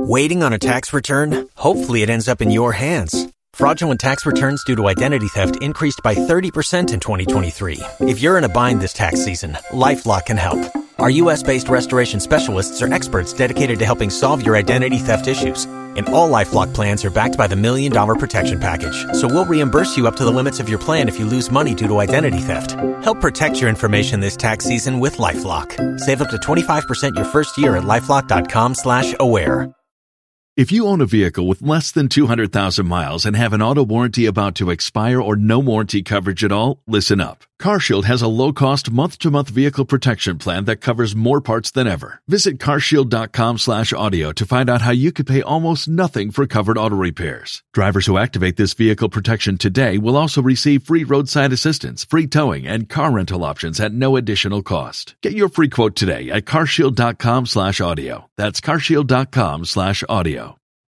Waiting on a tax return? Hopefully, it ends up in your hands. Fraudulent tax returns due to identity theft increased by 30% in 2023. If you're in a bind this tax season, LifeLock can help. Our U.S. based restoration specialists are experts dedicated to helping solve your identity theft issues. And all LifeLock plans are backed by the Million Dollar Protection Package. So we'll reimburse you up to the limits of your plan if you lose money due to identity theft. Help protect your information this tax season with LifeLock. Save up to 25% your first year at LifeLock.com slash aware. If you own a vehicle with less than 200,000 miles and have an auto warranty about to expire or no warranty coverage at all, listen up. CarShield has a low-cost month-to-month vehicle protection plan that covers more parts than ever. Visit carshield.com/audio to find out how you could pay almost nothing for covered auto repairs. Drivers who activate this vehicle protection today will also receive free roadside assistance, free towing, and car rental options at no additional cost. Get your free quote today at carshield.com/audio. That's carshield.com/audio.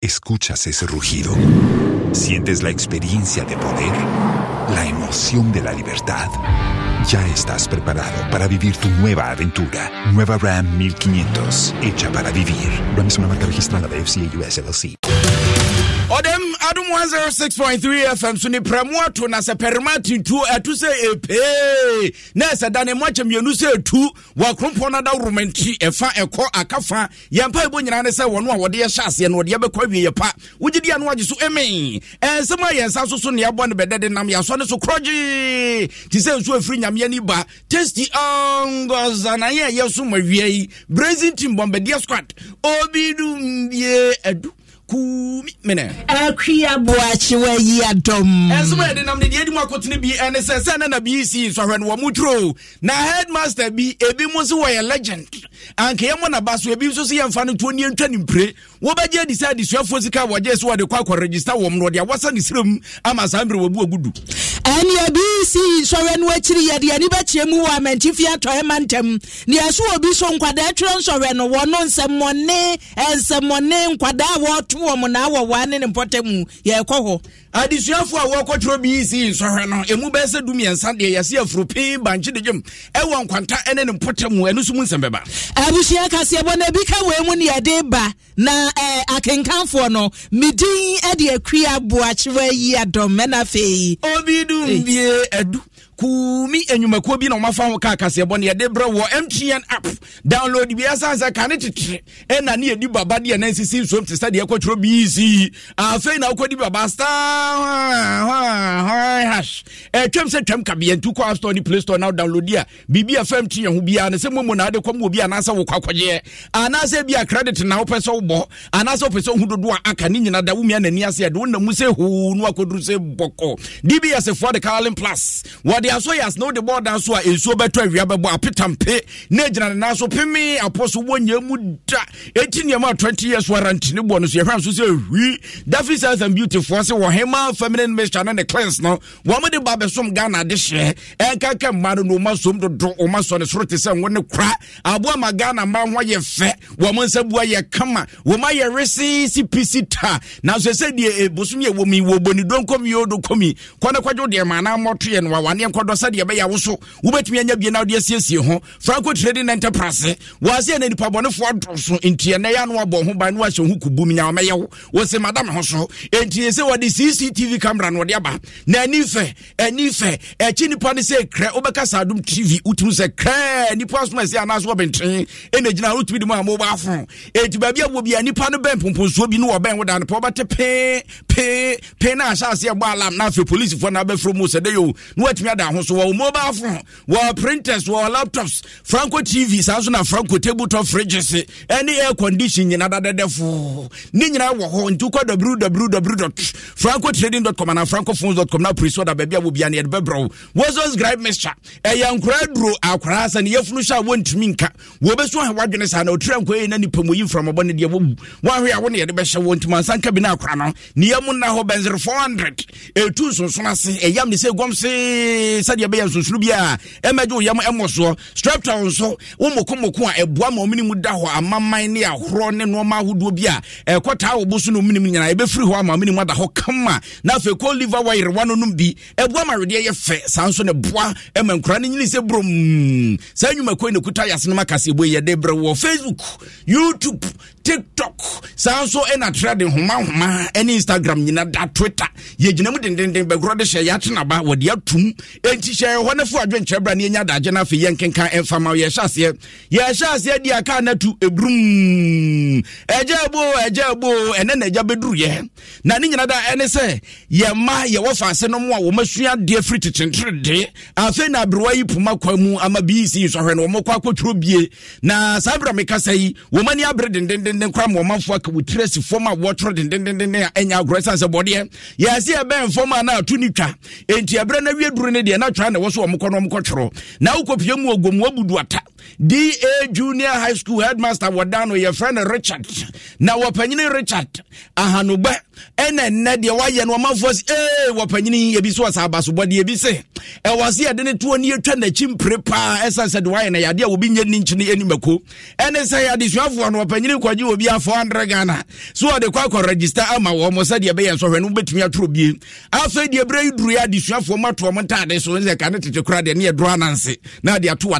Escuchas ese rugido. Sientes la experiencia de poder, la emoción de la libertad. Ya estás preparado para vivir tu nueva aventura. Nueva Ram 1500, hecha para vivir. Ram es una marca registrada de FCA US ɔdɛm adom 106.3 fm so ne prɛmo ato na sɛ pɛrema tuntu ɛto sɛ ɛpee na ɛsɛ da ne mmoakyɛ mmienu sɛ ɛtu wɔakrompɔ no da woroma nti ɛfa ɛkɔ akafa yɛmpa ɛbɔ nyinaa ne sɛ wɔno a wɔde yɛhyɛ aseɛ no wɔde yɛbɛkɔ awieyɛ pa wogye e, di a no wagye so ɛme ɛnsɛm a yɛnsa so so neɛbɔ ne bɛdɛde nam yɛasɔ ne so korɔgye te sɛ nsuo afiri nyameɛ ni ba tasty ɔngɔsanayɛ ɛyɛ so ma wia yi brazin team bɔmbɛdeɛ squad obi dumbie adu kumi mene akuya boakye wayi adɔm ɛnso ma yɛde nam ne deɛ adi mu bi na na headmaster bi ebi mu nso wɔyɛ legend ankeyɛ mɔ naba so ebi nso so yɛmfa no wobɛgye adi sɛ adesuafoɔ sika wɔgye sɛ wɔde kɔ wɔ m no wɔde awasa ne serɛm ama saa mmerɛ wabu agudu ɛne abi si sɔrɛ no akyiri yɛde ani bɛkyerɛ mu wɔ amantifie atɔe ma ntam ne ɛso obi so nkwadaa twerɛ nsɔrɛ no wɔ no nsɛmmɔne nsɛmmɔne nkwadaa a wɔto wɔ m na ne ne mpɔta mu yɛrekɔ hɔ adesuafoɔ a wɔkɔtwerɛ bc nsɔhwɛ no ɛmu bɛɛ sɛ dumiɛnsa deɛ yɛse afuro pii bankye de dwom ɛwɔ nkwanta ne ne mpota mu ɛno so mu nsɛm bɛba abusua kaseɛ bɔ na bi ka wei mu ne yɛde ba na eh, akenkanfoɔ no medin de akui aboakyerɛ yi adɔm afei obidum bie adu kuumi enyimakuo eh, bi na ɔmafa ho kaa kaseɛ bɔ ne yɛde brɛ wɔ mtn app download bi asansa ka ne tetere ɛna ne yɛdi baba deɛ na nsisi nsuom te sɛ deɛ ɛkɔtwerɛ bc afei ah, na wokɔdi baba star ɛtwam eh, sɛ twam kabeɛntu kɔ appstore ne play store na download a biribi a fam te ho biara ne sɛ momu na wode kɔm wɔ bi anaasɛ wokɔ akɔgyeɛ anaasɛ bi a credit na wopɛ sɛ wobɔ anaasɛ wopɛ sɛ wohu dodo a aka ne nyina da womia n'ani ase ɛde wonamu sɛ hoo no akɔduru sɛ bɔkɔ dbs foɔ de carlin plus wɔde wɔde asɔ yɛ asena wode bɔɔ da so a nsuo bɛtɔ awia bɛbɔ apetampe na agyina ne nan so peme apɔ so wɔnyɛ mu da ɛti nneɛma a 20 years warranty ne boɔ no so yɛhwɛ so sɛ hwi dafi science and beautyfoɔ se wɔhema feminine mixture no ne cleanse no wɔmde ba bɛsom ghana de hyɛ ɛnkaka mma no na ɔma som dodo ɔma sɔ ne soro te sɛ ngo ne kora aboa ma ghana mma ho yɛ fɛ wɔm nsa bua yɛ kama wɔma yɛ resisi pisi ta nanso ɛsɛ deɛ eh, bosom yɛ wɔmi wɔbɔni donkɔmi yɛ odo kɔmi kɔne kwadwo deɛ maanaa mmɔto yɛ no wawaneɛ akɔdɔ sɛdeɛ ɛbɛyɛ awo so wobɛtumi anya bie na wode asiesie ho franco trading enterprise wɔaseɛ na nipabɔnefoɔ do so nti ɛnɛ yɛ ano abɔ ho ban ne wahyɛ ho kubum nyawomɛyɛ wo wɔse madam ho so enti sɛ wɔde cctv camera no wɔde aba na ani fɛ ani fɛ ɛkyi nipa no sɛ krɛ wobɛka saa dom tv wotumi sɛ krɛ nipa asoma ɛsɛ anaasɛ wɔbɛntene ɛna gyina wotumi de mu a mobile phone enti baabi a bia nipa no bɛn pomponsuo bi ne wɔbɛn woda no wobɛte pee pee pee na ahyɛ aseɛ bɔ alam na afei polisifoɔ no abɛfrɛ mu sɛ dɛ yo na woatumi ada ahosuo wɔwɔ mobile phone wɔwɔ printers wɔwɔ laptops franco tv saa nso na franco table tabletop fridges ɛne air condition nyina dadadɛfo ne nyinaa wɔ hɔ nti wokɔ www franco trading com anaa franco phones com na apre so da baabi a wɔbia ne yɛde bɛbrɛ wo wɔsɛ scribe mixture ɛyɛ nkora duro akwara sɛ ne yɛfunu hyɛ a wɔntumi nka wɔbɛsu ahɛ wadwene saa na ɔtiri ankɔ yɛ na nipa mu yi mframabɔ ne deɛ wɔwu woahwe a wo ne yɛde bɛhyɛ wɔ ntumi ansa nka bi no akwara no ne yɛmu nna hɔ bɛnsere 400 ɛtu nsonson ase ɛyam ne sɛ ɛgɔm see sɛdeɛ ɛbɛyɛ nsonsoro bi a ɛmɛgye wo yam ɛmmɔ soɔ straptown nso wo mokomoko a ɛboa ma ɔmene da hɔ amaman ne ahorɔ ne nnoɔma ahodoɔ bi a ɛkɔtaa wo bo so ne ɔmenem nyinaa ɛbɛfiri hɔ ama ɔmene ada hɔ kama na afei kɔ liver wayerewa no nom bi ɛboa ma awedeɛ yɛ fɛ saa nso ne boa ma nkora no nyini sɛ brom saa nnwumakoi ne kuta yɛase akaseɛbɔ yɛde berɛ wɔ facebook youtube tiktok saa nso ɛna trɛ de homa ɛne instagram nyina da twitter yɛgyina mu dendenden bɛgorɔ de hyɛ yɛakyenaba wɔde atum enti hyɛ hɔ no fo adwenkyerɛ bra ne yɛnya adagye no afei yɛnkenka ɛmfa ma yɛhyɛ aseɛ yɛhyɛ aseɛ di aka no atu ɛburum ɛgya bo ɛgya bo ɛnɛ na agya bɛduruyɛ na ne nyina da ɛne sɛ yɛma yɛwɔ faase no mu a wɔmasua adeɛ firi tekyenterede afei na aberewa yi poma kwa mu ama bii si e sɔhwɛ no wɔmɔkɔ akɔtwerɛ bie na saa berɛ mekasa yi wɔmani abere dendenden denden kora ma ɔmanfoɔ aka wɔtiri asi fam a wɔtoro dendendenden a ɛnya agorɔ sane sɛ bɔdeɛ yɛase ɛbɛn fam a na ato ne twa enti ɛberɛ na awie duru no deɛ na twa na ɛwɔ so ɔmokɔ no ɔmokɔtwerɔ na wokɔpie mu ɔgom wabudu ata da junior high school headmaster wɔda no yɛfrɛ no richard na wɔpanyini richard ahanobɛ ɛna nnɛ deɛ wayɛ no ɔmanfoɔ si ee wɔpanyini ebi so ɔsa abasobɔde ebi se ɛwɔ se yɛde ne toɔ ne yɛtwa n'akyi mpere paa ɛsan sɛ de wayɛ no yadeɛ a obi nye ne nkyene animako ɛne sɛ adesuafoɔ no wɔpanyini kɔgye obi a four hundred ghana so ɔde kɔ akɔ register ama wɔn sɛdeɛ ɛbɛyɛ nsɔhwɛ no wobɛtumi atoro bie afei deɛ ebire yi duru yɛ adesuafoɔ mu ato wɔn ntaade so ne sɛ kane tete kora deɛ ne yɛ doro na de ato wɔ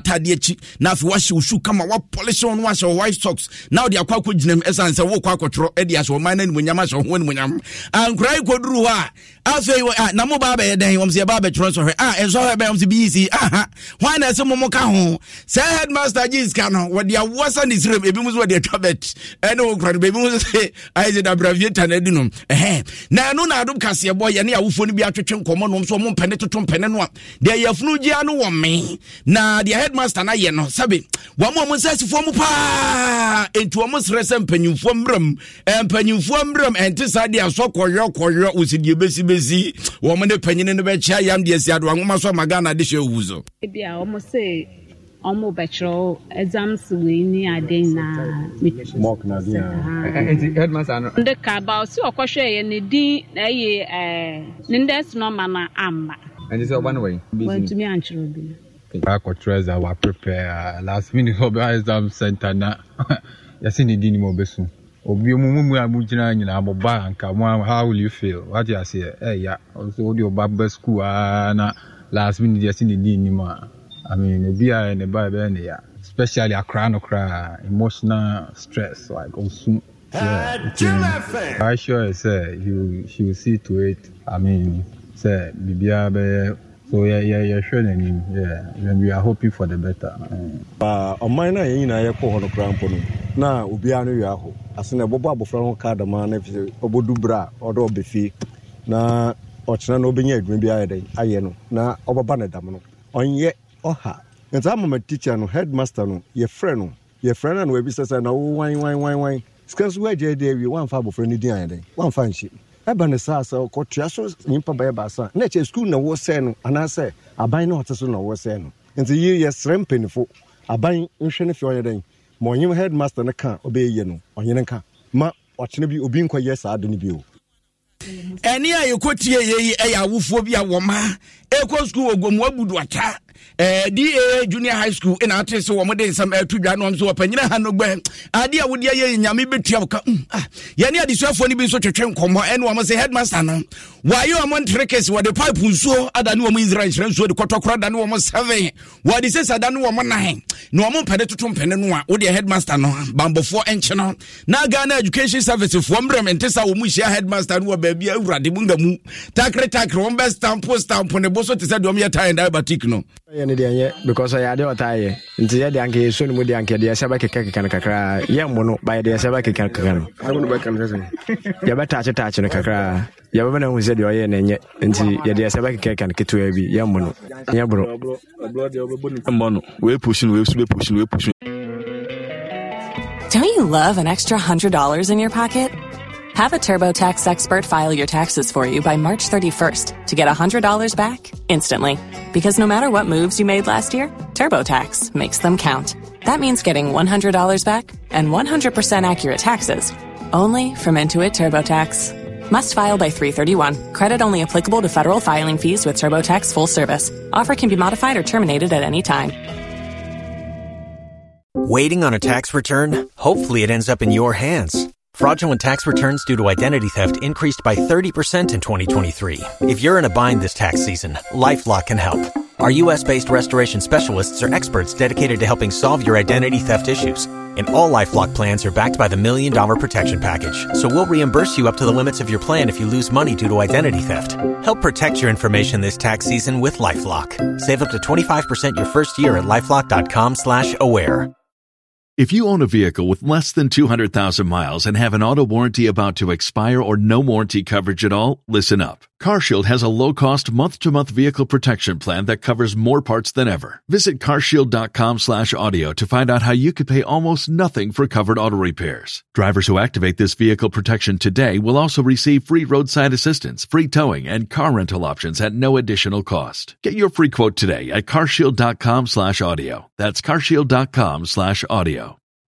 na wash wahyɛ shoes, come kama wapolish polish on wahyɛ your white socks now wode akɔ akɔgyinam ɛsiane sɛ wokɔ akɔtwerɔ de ahyɛ ɔman no animonyam ahyɛ wo ho animonyam ankora yi hɔ a afei ah, na mo ba bɛyɛ dɛn wɔm sɛ yɛba bɛtwerɛ nsɔhwɛ a ah, ɛnsɔhwɛ bɛyɛ wɔm sɛ bii si aha hwan na ɛsɛ mo mo ka ho sɛ headmaster gye sika no wɔde awoɔ sa ne sirem ebi mu so wɔde atwa bɛt ɛne wo kora no baabi mu so sɛ ayɛ sɛ dabraviata no adi nom ɛhɛ na ɛno na adom kaseɛbɔ yɛne awofoɔ no bi atwetwe nkɔmmɔ nom so ɔmo mpɛne toto mpɛne no a deɛ yɛfunu gyea no wɔ me na deɛ headmaster na ayɛ no sɛbe wɔn a wɔn sɛ asifoɔ mu paa etu wɔn srɛ sɛ mpanyinfoɔ mmerɛm mpanyinfoɔ mmerɛm ɛnte saa deɛ asɔ kɔyɔ kɔyɔ osi deɛ ebesi besi bɛsi wɔn ne panyini no bɛkyɛ yam deɛ si adoa nwoma so ama ghana de hyɛ owu so. ebi a wɔn se wɔn bɛtwerɛ exams wei ni ade na mɔk na di yan. Ah. Eh, eh, nti headmaster ano. nde kaba osi ɔkɔhwɛ yɛ ne din na ɛyɛ ɛɛ eh, ne ndɛs nɔma na ama. ɛnti sɛ ɔba ne wɔyi. wɔntumi antwerɛ bi. akɔtwerɛ ɛza wa prepare ah, last minute ɔbɛ exam center na yasi ne din ni mo bɛ sun obi mu mu mu a mu gyina nyinaa mo ba anka mo how will you feel wate aseɛ ɛya nso wode ɔba ba school aa na last minute yɛsi ne di nim a i mean obi a ne ba bɛyɛ ne ya especially akora no koraa emotional stress like ɔsum yeah, okay. I sure say you she will see to it. I mean, say bibia bɛyɛ so yɛ yɛhwɛ n'anim we are hoping for the better ɔman ah, no a yɛn nyinaa yɛkɔ hɔ no kora mpo no na obiara no wia hɔ ase na ɛbɔbɔ abɔfra ho kaa dama na ɛfisɛ ɔbɛdu berɛ a ɔde na ɔkyena na ɔbɛnya adwuma bi ayɛ dɛn ayɛ no na ɔbɛba ne dam no ɔnyɛ ɔha nti ama ma teacher no headmaster no yɛfrɛ no yɛfrɛ no a na wabisɛ sɛ na wo wan wan wan wan sika nso woagya adi awie woamfa abɔfra no din ayɛ dɛn woamfa nhyɛ ɛba ne saa sɛ ɔkɔtua so nyimpa bɛyɛ baasa na ɛkyɛ sukuu na wɔsɛe no anaasɛ aban na ɔte so na wɔsɛe no nti yi yɛsrɛ mpanifo aban nhwɛ no fie ɔyɛ dɛn ma ɔnyem headmaster no ka ɔbɛyɛ yie no ɔnyene ka ma ɔkyena bi obi nkɔyɛ saa ade no bio ɛne a yɛkɔtie yɛyi ɛyɛ awofoɔ bi a wɔma ɛkɔ sukuu wɔ gomua buduata Eh, da junior high school ɛna eh, ate sɛ wɔmde nsɛm ɛto eh, dwa no so wɔpanyina ha no gbɛ adeɛ a wodeɛ yɛ nyame bɛtua woka mm, ah, yɛne adesuafoɔ no bi nso twetwe nkɔmmɔ ɛne wɔm sɛ headmaster no wayɛ ɔm ntrekes wɔde pipe nsuo ada ne wɔm israel nhyerɛ nsuo de kɔtɔkorɔ da ne wɔm seven wɔde sɛsa da ne wɔm nine na wɔm mpɛne toto mpɛne no a wodeɛ headmaster no bambɔfoɔ ɛnkye no na ghana education service foɔ mmerɛ mente sa wɔ mu hyia headmaster no wɔ baabi awurade mu nga mu takre takre wɔm bɛ stampo stampo ne bo so te sɛ deɛ ɔmyɛ tae diabatic no because ɔyɛ adeɛ ɔtaa yɛ nti yɛ deɛ anka yɛso no mu deɛ anka yɛdeɛ sɛ bɛkeka keka no kakraa yɛmmo no ba yɛdeɛ sɛ bɛkeka keka no yɛbɛtaakye taakye no kakraa yɛbɛbɛ no ahu sɛ deɛ ɔyɛ ne nyɛ nti yɛdeɛ sɛ bɛkeka keka no ketewa bi yɛmmo no nyɛ borɔ mmɔ no wɔɛpusu no wɔɛsu bɛpusu no wɔɛpusu Don't you love an extra $100 in your pocket? Have a TurboTax expert file your taxes for you by March 31st to get $100 back instantly. Because no matter what moves you made last year, TurboTax makes them count. That means getting $100 back and 100% accurate taxes only from Intuit TurboTax. Must file by 331. Credit only applicable to federal filing fees with TurboTax full service. Offer can be modified or terminated at any time. Waiting on a tax return? Hopefully, it ends up in your hands Fraudulent tax returns due to identity theft increased by 30% in 2023. If you're in a bind this tax season, LifeLock can help. Our U.S.-based restoration specialists are experts dedicated to helping solve your identity theft issues. And all LifeLock plans are backed by the Million Dollar Protection Package. So we'll reimburse you up to the limits of your plan if you lose money due to identity theft. Help protect your information this tax season with LifeLock. Save up to 25% your first year at LifeLock.com slash aware. If you own a vehicle with less than 200,000 miles and have an auto warranty about to expire or no warranty coverage at all, listen up. CarShield has a low-cost month-to-month vehicle protection plan that covers more parts than ever. Visit carshield.com/audio to find out how you could pay almost nothing for covered auto repairs. Drivers who activate this vehicle protection today will also receive free roadside assistance, free towing, and car rental options at no additional cost. Get your free quote today at carshield.com/audio. That's carshield.com/audio.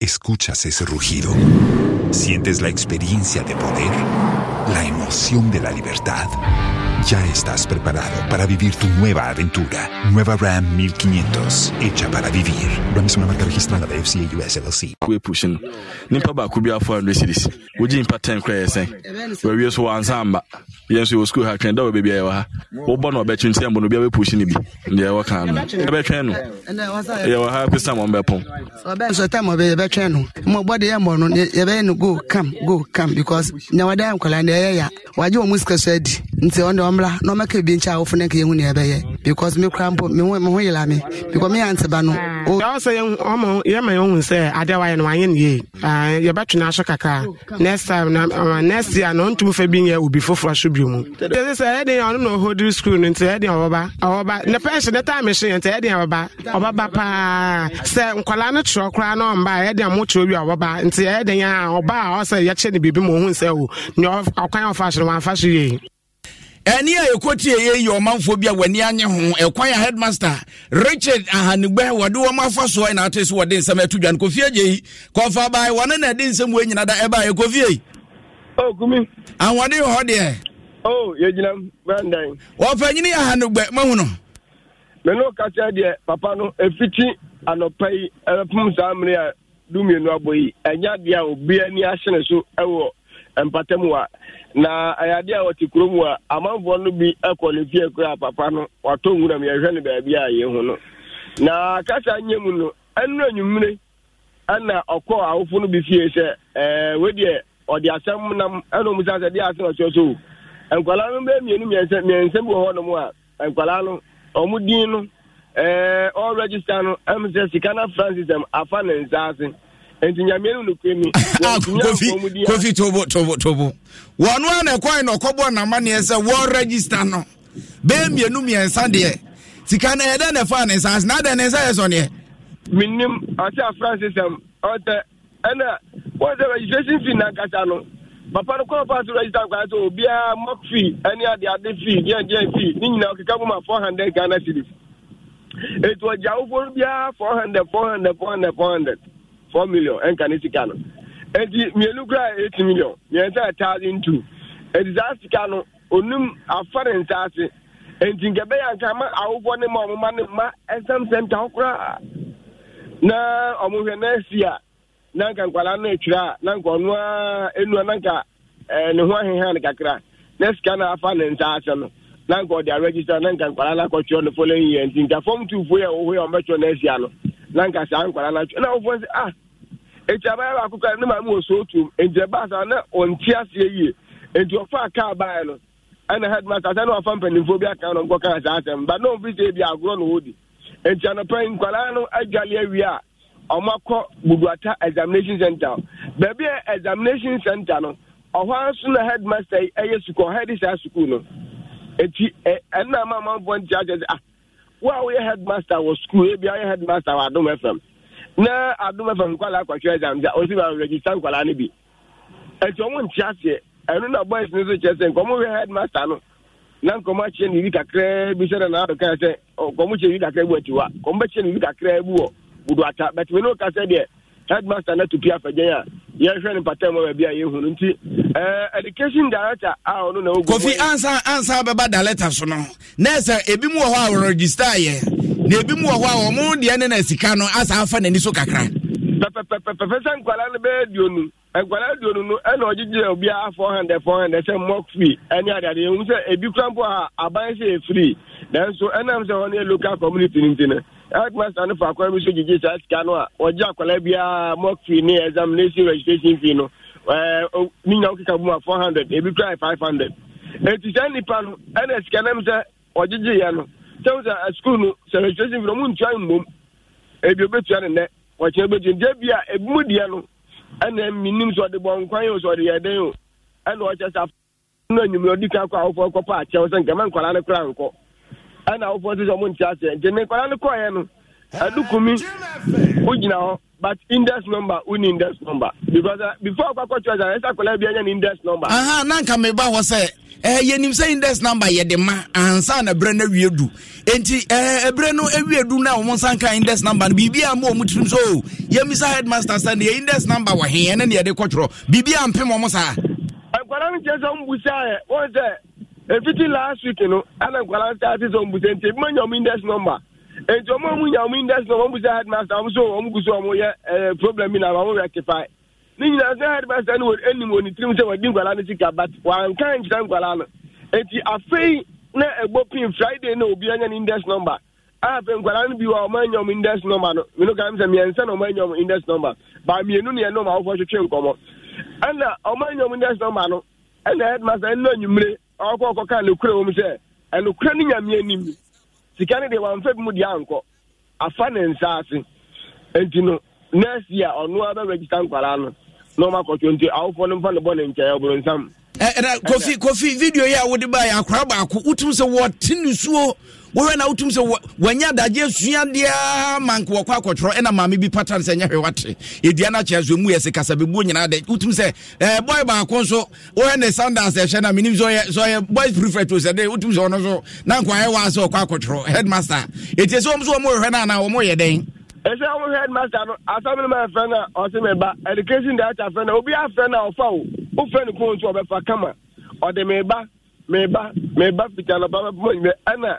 escuchas ese rugido, sientes la experiencia de poder, la emoción emoción de la libertad. Ya estás preparado para vivir tu nueva aventura. Nueva Ram 1500, hecha para vivir. Ram es una marca registrada de FCA US LLC. wagye wɔn mu sika so adi nti ɔno ɔmmra na ɔmɛka bi nkyɛn a wofu ne nka yɛhu ɛbɛyɛ because me kora mpo me ho yela me because me yante ba no. sɛ yɛma yɛn sɛ adeɛ wayɛ no wanyɛ no yie ah, kakra next time ah, next year na ɔntumi fɛ bi obi foforɔ so bi mu. ɛsɛ sɛ ɛdi e ɔno na school no nti paa sɛ nkwadaa no kyerɛ koraa na ɔmba bi a ɔba asere wɔamfa so yei ɛne a ɛkɔtie yɛ yɛ ɔmanfoɔ bi a w'ani anye ho ɛkwan a headmaster richard ahanigbe wɔde wɔn afa soɔ ɛna ato so wɔde nsɛm ɛto dwan kofie gye yi kɔfa baa wɔne na ɛde nsɛm wɔ nyina da ɛbaa ɛkofie yi. o oh, kumi. ahoɔden wɔ hɔ deɛ. o oh, yɛgyina brandan. ɔpanyini ahanigbe mahu no. menu kasa deɛ papa no efiti anɔpa yi ɛpum saa mmiri a dumienu abɔ yi ɛnya deɛ a obi so ɛwɔ mpatam a na ayade a wɔte kurom a amanfoɔ no bi kɔ ne fie kora papa no watɔ nwuram yɛhwɛ no baabi a yɛ hu no na kasa nyɛ mu no ɛno anwummere ɛna ɔkɔɔ awofo no bi fie sɛ ɛɛ wedeɛ ɔde asɛm nam ɛna ɔmu sase deɛ ase na ɔkyerɛ so nkwalaa no bɛyɛ mmienu mmiɛnsa mmiɛnsa bi wɔ hɔ nom a nkwadaa no ɔmo din no ɛɛ ɔɔ no ɛmu sɛ sika na francis ɛm afa ne nsa ase. nti nyame no nokwani kofi tobo tobo tobo wɔno a na ɛkɔe na ɔkɔbɔ namanneɛ sɛ wɔregister no bɛɛ mmienu mmiɛnsa deɛ sika no ɛyɛ na ɛfaa ne nsa ase na adɛn ne nsa yɛ sɔneɛ menim ɔsɛ afranse sɛm ɔtɛ ɛna wɔn sɛ registration fee nankasa no papa no kɔn paa so register kwaa sɛ obiara mock fee ɛne adeade fee deɛdeɛ fee ne nyinaa ɔkeka mu ma four hundred ghana cedis ɛti ɔgya no biara four hundred four hundred four hundred four hundred four million ɛnka ne sika no eti mmienu kura eight million mmiɛnsa thousand two eti saa sika no onum afa ne nsa ase eti nkɛbɛyɛ nka ma awofoɔ ne ma ɔmoma ne ma ɛsɛm sɛm ta koraa na ɔmo hwɛ na esi a na nka nkwalaa no etwira na nka ɔno a enua na nka ɛɛ ne ho ahehan ne kakra na sika na afa ne nsa ase no na nka ɔde aregista na nka nkwalaa na akɔtwɛ no following year nti nka fɔm tuufoɔ yɛ ɔwɔ yɛ ɔmɛtwɛ na esia no. na nka saa nkwara na atwa na ɔfɔ sɛ ah etu abaya baako kora ne mmadụ wɔ otu nti ɛbaa na ɔnte asị yie nti ɔfa kaa baa no ɛna headmaster sɛ na wafa mpanimfoɔ bi aka no nkɔka saa asɛm na ɔmfi sɛ bi agorɔ na ɔdi nti anɔpɛ nkwara no adwale awie a ɔmakɔ buduata examination center baabi a examination center no ɔhɔ nso na yi ɛyɛ sukuu saa sukuu no eti ɛnna e, e, nti akyɛ sɛ ah wo a woyɛ headmaster wɔ skul ebi a woyɛ headmaster wɔ adum fm na adum fm nkwalaa akɔhwɛ exam regista osi ma register nkwala no bi nti ɔmo nte aseɛ ɛno na boys no so kyerɛ sɛ headmaster no na nkɔmo akyerɛ ne bi kakraa bi sɛ na naado kaa sɛ nkɔmo kyerɛ ne bi kakraa bi wɔ atiwa nkɔmo bɛkyerɛ ne kakraa bi wɔ budu ata bɛtumi ne o kasa deɛ headmaster na tupi afɛgyɛn a yɛhwɛ no mpatam ma baabi a yɛhu no nti eh, education director a ɔno na kofi ansa ansa bɛba director so no na ebi mu wɔ hɔ a wɔregister yɛ na ebi mu wɔ hɔ a wɔn deɛ ne na sika no asa afa n'ani so kakra pɛpɛpɛpɛpɛ sɛ nkwalaa no bɛyɛ duonu eh, nkwalaa duonu no ɛna ɔgyegye obi a four hundred four hundred sɛ mock free ɛne adeade ehu sɛ ebi kura mpo a aban sɛ efiri nanso ɛnam sɛ wɔn yɛ local community ne ti no. headmaster no fa akwan bi so gyegye saa sika no a ɔgye akwala biara mock fee ne examination registration fee no ne nya wokeka four hundred ebi kora five hundred enti saa nnipa no ɛna sika nam sɛ ɔgyegyeeɛ no sɛm sɛ asukuu no sɛ registration fee no mmom ebi eh, obetua ne nnɛ wɔkyerɛ bɛtua nti ebi a ebi mu deɛ no ɛna minim sɛ ɔde bɔ o sɛ ɔde yɛ o ɛna ɔkyɛ sɛ afɔ no enyim kan kɔ akyɛw ɛna wofoɔ sɛ sɛ ɔmo nte aseɛ nti menkɔda no kɔɛ no adukumi wogyina hɔ but index number wo ne index number because uh, before akɔkɔ church a ɛsɛ akɔla bi anya ne index number aha na nka meba hɔ sɛ eh, yɛnim sɛ index number yɛde ma ansa na berɛ no awie du enti eh, berɛ no awie du no a ɔmo index number no biribia ma ɔmo tirim so o oh, yɛmisa headmaster sɛ ne yɛ index number wɔ he ɛne ne yɛde kɔtwerɛ biribia mpem ɔmo saa nkwadaa no kyerɛ sɛ ɔmo busaa yɛ wɔn sɛ efiti last week no ana nkwala start sɛ ɔmu sɛ nti ebi ma nya ɔmu index number nti ɔmu ɔmu nya ɔmu index number ɔmu sɛ headmaster ɔmu so ɔmu gu so ɔmu yɛ ɛɛ problem bi na ɔmu rectify ne nyinaa sɛ headmaster no enim wɔ ne tirim sɛ wɔdi nkwala no sika but wanka nkyerɛ nkwala no nti afei na ɛbɔ pin friday na obi anya ne index number a afei nkwala no bi wɔ ɔmu anya ɔmu index number no mino kan sɛ mmiɛnsa na ɔmu anya ɔmu index number ba mmienu ne yɛn no ma wɔfɔ twetwe nkɔmɔ ɛna ɔmu anya ɔmu index number no ɛna headmaster ɛna enyimire ọkọ ka kaa n'ekura wọm sɛ ɛnukura ne nyame anim sika ne deɛ wamfa bi mu deɛ ankɔ afa ne ase nti no nɛɛsi a ɔno nkwaraa no na ɔma akɔtɔ nti awofoɔ no mfa ne bɔ ne nkyɛn ɔboro nsam. ɛna kofi kofi yi a wode ba yɛ akwara baako wotum sɛ wɔte nusuo wohwɛ na wotum sɛ wanya adagye suadeɛ ma nka wɔkɔ akɔtwerɛ ɛna maame bi pata no sɛ nyɛ hwɛ wate ɛdua no akyerɛ so mu yɛ se bɛbuo nyinaa dɛ wotum sɛ boy baako nso wohɛ ne sandans ɛhyɛ no menim sɛ ɔyɛ boys prefect o sɛ dɛ wotum sɛ ɔno so na nkwaɛ waa sɛ ɔkɔ akɔtwerɛ headmaster ɛtie sɛ wɔm so wɔmɔhwɛ no anaa wɔmɔyɛ dɛn ɛsɛ wɔn headmaster no asɔmi ma ɛfɛ na ɔsi mi ba education director fɛ na obi afɛ na ɔfa o ofɛ ne kóntó ɔbɛfa kama ɔdi mi ba mi ba mi ba fita na ɔba bɛ pɔmɔ nyɛ ɛna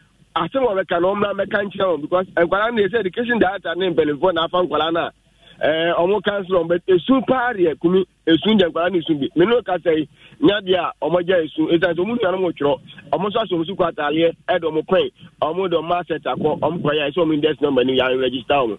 asem ɔbɛka na ɔmmra mɛka nkyerɛ wɔn because nkwadaa no yɛ sɛ education data ne mpanimfoɔ na afa nkwadaa no eh, a ɔmo council but esu paa deɛ kumi esu deɛ nkwadaa no esu bi menu kasa yi nya deɛ a ɔmo gya esu esan so ɔmo nua no mo twerɛ ɔmo nso aso ɔmo so kɔ ɔmo ɔmo de ɔmo asɛt akɔ ɔmo yɛ ɔmo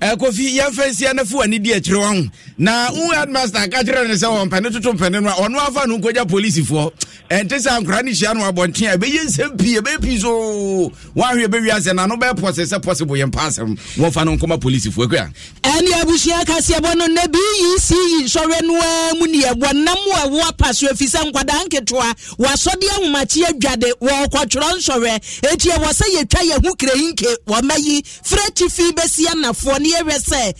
kofi yɛmfa nsia no fa w'ani di akyirɛ wa ho na wo headmaster ka kyerɛ ne sɛ wɔmpɛne toto mpɛne no a ɔno afa no nkɔgya polisifoɔ ɛnte sɛ ankora no hyia no abɔnten a ɛbɛyɛ nsɛm pii ɛbɛyɛ pii so woahwɛ bɛwie asɛ na no bɛpɔse sɛ possible yɛmpa asɛm wɔmfa no nkɔma polisifoɔ akua ɛne abusua kaseɛbɔ no na bec nsɔre no a mu neɛbɔ nam a ɛwo apa so ɛfiri sɛ nkwadaa nketewa wɔasɔde ahomakye adwade wɔɔkɔtwerɛ nsɔrɛ ɛti ɛwɔ sɛ yɛtwa yɛho krɛyinke wɔmayi frɛ tifi bɛsi anafoɔ ne bi awia sɛ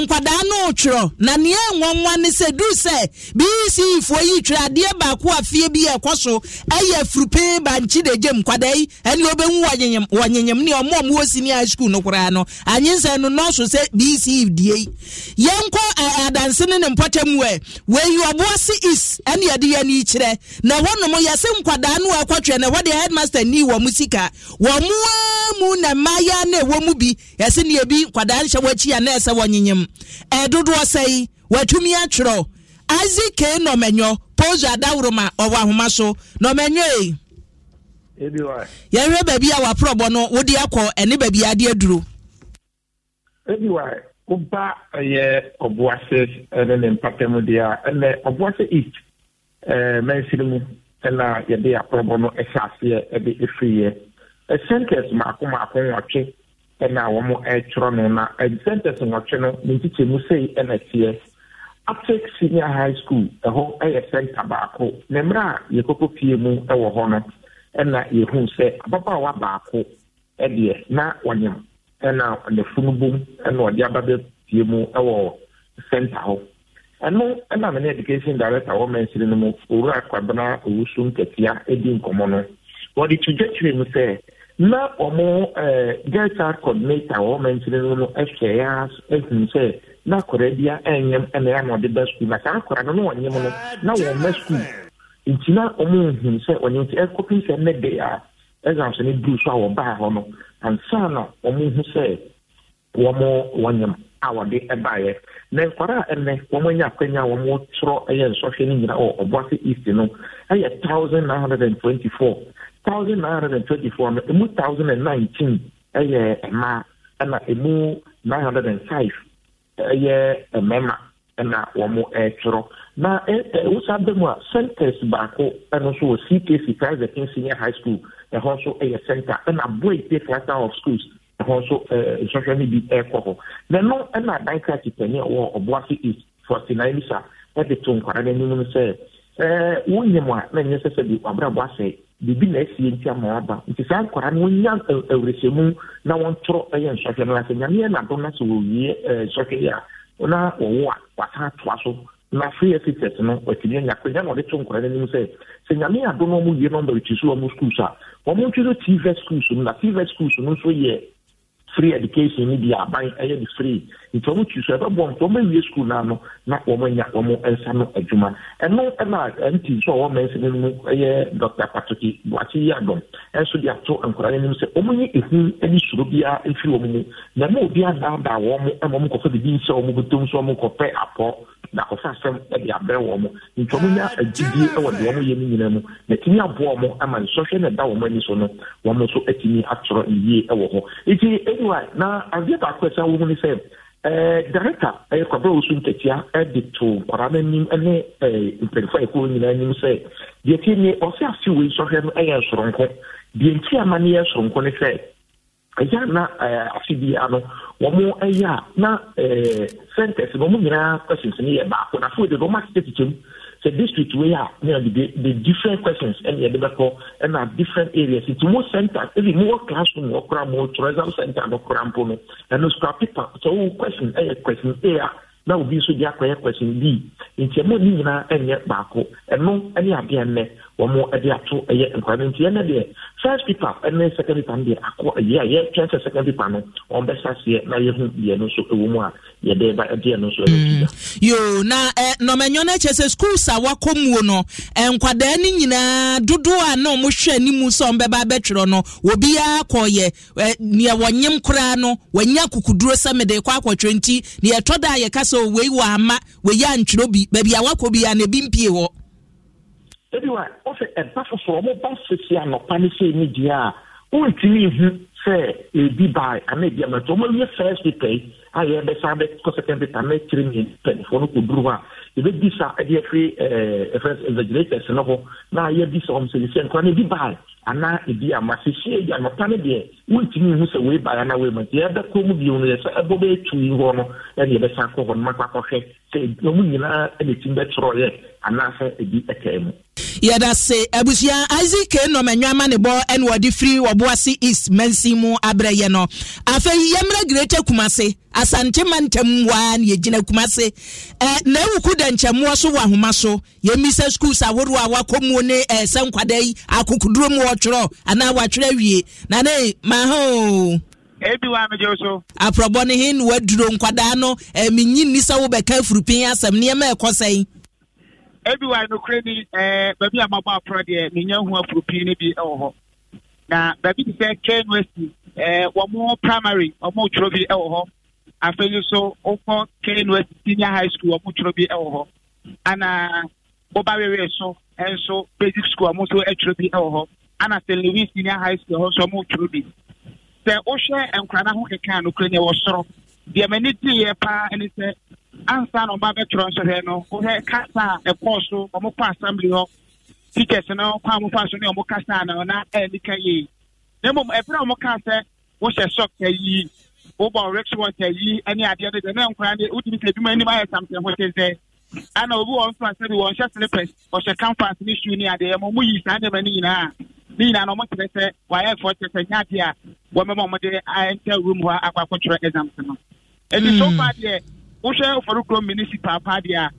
nkwadaa no twerɛ na nea nwa ne sɛ duru sɛ bc fo yi twerɛ adeɛ baako a fie bi ɛkɔ so ɛyɛ furupin bankye de gyem nkwadaa yi ɛne obɛnwu wɔ nyenyem ne ɔmo ɔmo wɔ sini high school no koraa no anyinsa no nɔɔso sɛ bc die yi yɛnkɔ ɛɛ adanse ne ne mpɔtɛ mu ɛ wɔyi ɔboɔ se is ɛne yɛde yɛ ni kyerɛ na wɔnom yɛse nkwadaa no ɛkɔtwerɛ na wɔde headmaster ni wɔ mu sika wɔn mu mu na mmayewa na ɛwɔ mu bi yɛse ne ebi nkwadaa nhyɛ wɔ akyi a na ese wɔnyenyem ɛdodoɔ sɛ yi watumi atwerɛ nɔmɛnyɔ adaworoma ɔwɔ ahoma so nɔmɛnyɔ yi e. yɛhwɛ baabi a waporɔbɔ no wode akɔ ɛne baabi ade aduro ebiwa woba ɛyɛ ɔboase ɛne ne mpatam deɛ a ɛnɛ ɔboase east ɛɛ na mu ɛna yɛde aporɔbɔ no ɛhyɛ aseɛ na wɔ mo ɛtwerɛ no na sɛntɛs nwɔtwe no ne nkyikyɛmu sei na teɛ aptic senior high school ɛhɔ yɛ center baako na mmerɛ a yɛkɔkɔ fie mu wɔ hɔ no ɛna yɛhuu sɛ ababaawa baako deɛ na ɔnyam ɛna ne funu bom na ɔde aba bɛfie mu ɛwɔ center hɔ ɛno ɛna mene education director wɔ mansiri no mu owura kwabena owusu katia di nkɔmɔ no wɔde to dwatwere mu sɛ na ọmụ girl child coordinator wɔ mɛntini ya na akɔda bi a ya na ɔde ba sukuu na saa akɔda na ɔnyɛm no na nti na ɔmo ehun sɛ ɔnyɛm ti ɛkɔpi ne de a ne so a wɔbaa hɔ no ansa na a wɔde baeɛ na nkwadaa a ɛnɛ wɔn anya akwanya a wɔtwerɛ ɛyɛ nsɔhwɛ no nyinaa wɔ ɔboase east no ɛyɛ thousand nine hundred and twenty four thousand nine hundred and twenty four no emu thousand and nineteen ɛyɛ mmaa ɛna emu nine hundred and five ɛyɛ mmarima ɛna wɔn ɛretwerɛ na ɛwosa bɛ mu a centers baako ɛno nso wɔ ckc private senior high school ɛhɔ nso ɛyɛ center ɛna boy pay cluster of schools hɔ nso nsɔhwɛ no bi ɛrekɔ hɔ na no na adan kraki panyin a ɔwɔ ɔboase east forty nine bisa ɛde to nkwara no anim no sɛ ɛɛ eh, wonyam a na nyɛ sɛ sɛ bi wabrabɔ asɛe biribi na asie nti ama waba nti saa nkwara no wonya eh, awurɛsɛmu na wɔntoro ɛyɛ nsɔhwɛ no ase nyameɛ nado no sɛ wɔwie ɛɛ eh, nsɔhwɛ yi a na wɔwo a wasa atoa so na free exercise no watumi anya akwanya na ɔde to nkora no anim sɛ sɛ nyame ado no ɔmo wie nɔmba ɛkyi so ɔmo schools a ɔmo ntwi so tv schools no na tv schools free education ni di aban ɛyɛ de free ntɔm twi so ɛbɛbɔ ntɔm awie sukuu naa na wɔn anya wɔn nsa no adwuma ɛno ɛna nti so a wɔn mɛnsa no mu ɛyɛ dr patoki buakye yi adɔm ɛnso de ato nkwadaa no anim sɛ wɔn nye ehu ɛne soro biara efiri wɔn mu na ɛna obi adaadaa wɔn ɛma wɔn kɔfɛ bibi nhyɛ wɔn bɛtɔm so wɔn kɔpɛ apɔ na kɔfɛ asɛm ɛde abrɛ wɔn ntɔm nya agyidie ɛwɔ deɛ wɔn yɛ no nyinaa mu na tini aboa wɔn ama nsɔhwɛ na ɛda wɔn ani so no wɔn nso atumi atwerɛ yie ɛwɔ hɔ eti anyway na adeɛ baako ɛsɛ wɔn ni sɛ Eh, director ɛyɛkwabrɛ wo so ntatia de to nkwaraa no anim ne a ayɛkɔɔ nyinaa anim sɛ deɛ ti ne ɔsɛ afe wei sɔhwɛ no ɛyɛ nsoronko deɛ ama no yɛ nsoronko ne sɛ ɛyɛ na afe bia no wɔn ɛyɛ a na centers no wɔn nyinaa questions no yɛ baako na afei de no wɔn asekyɛ kyikyɛ mu the district we are, you know, the, the different questions and the debacle and our different areas. It's more center, even more classroom, more cram, more tourism center, more cram, and no scrap paper. So question A, question A, now will be so the question B. It's a more and yet back, and no, any idea wɔn de ato yɛ nkwadaa no nti ɛnna deɛ first paper ne second paper no deɛ akɔ yɛ a yɛtwɛn sɛ second paper no wɔn bɛsa seɛ na yɛhu eh, deɛ no nso wɔ mu a yɛde ba deɛ no nso ɛyɛ tuya. yoo na ɛ nɔmɛnyɔ no kyɛ sɛ schools a wakɔ muo no eh, nkwadaa no nyinaa dodoɔ a na wɔn hwɛ anim sɛ wɔn bɛba abɛtwerɛ no obiara kɔɔyɛ ɛ eh, nea wɔnyem koraa no wɔnyɛ akukuduro sɛmede kɔ akɔtwerɛ nti nea ɛtɔ da a yɛka sɛ wei wɔ ama wei yɛ antwerɛ bi baabi a wakɔ bi a na ebi mpie wɔ ebi wa ɔsɛ ɛba foforɔ ɔmo ba sisi anɔpa ne se ne deɛ a wɔntumi ihu sɛ ebi baa anaa ebi amɛtɔ ɔmo yɛ fɛɛsi pɛɛ a yɛbɛsan bɛkɔ second data na kyerɛ mmienu panifoɔ no kɔduru hɔ a yɛbɛdi sa de afiri ɛfrɛ exagerators no ho na yɛdi sɛ ɔm sɛ ne sɛ nkora no bi bae anaa ebi a masehye agya nɔpa no deɛ wontumi hu sɛ wei na anaa wei ma nti yɛbɛkɔ mu bio no yɛ sɛ ɛbɔ bɛɛtui hɔ no ɛne yɛbɛsan kɔ hɔ no makɔ akɔhwɛ sɛ ɔmu nyinaa ne tim bɛtorɔyɛ anaasɛ ebi ɛtaa mu yɛda se abusua isaac nnɔm ɛnwama ne bɔ ɛne wɔde firi wɔboase east mansin mu abrɛ yɛ no afei yɛmmerɛ greta kumase asantema ntam waa na yɛgyina kumase eh, na awuku dɛnkyɛmmoɔ so wɔ ahoma so yɛmmisa schools ahodoɔ a wakɔmuo ne eh, sɛ nkwada yi akokoduro mu anaa wɔatwerɛ awie na ne ebi wa amegye so. ne na waduro nkwadaa no eh, menyi nni sɛ asɛm nneɛma ɛkɔ sɛn ebi wa eh, ni eh, baabi a mabɔ aporɔ deɛ menya hu afurupin no bi eh, afei nso wokɔ senior high school ɔmo twerɛ bi wɔ e hɔ ana woba wewe so nso basic school ɔmo nso twerɛ bi wɔ hɔ ana st louis senior high school hɔ nso ɔmo twerɛ bi sɛ wohwɛ nkora no e ho keka nokora ne ɛwɔ soro deɛ m'ani paa ne sɛ ansa na bɛtwerɛ no kasa a ɛkɔɔ so ɔmo kɔ assembly hɔ teachers no kasa na ɔna na mmom ɛberɛ a ɔmo kaa sɛ wohyɛ wobɔ restaurant ayi ne adeɛ no deɛ na nkora ne wotumi sɛ adwuma anim ayɛ samsɛn ho kyɛn sɛ ana obi wɔ mfa sɛde wɔnhyɛ slippers ɔhyɛ canvas ne shoe ne adeɛ ma moyii saa nneɛma no nyinaa ne nyinaa na ɔmokyerɛ sɛ wayɛ ɛfoɔ kyerɛ sɛ nya adeɛ a wɔmɛma ɔmode ɛnta room hɔ akɔ akɔtwerɛ exams no ɛnti so far deɛ wohwɛ ɔfɔrokuro municipal paa deɛ a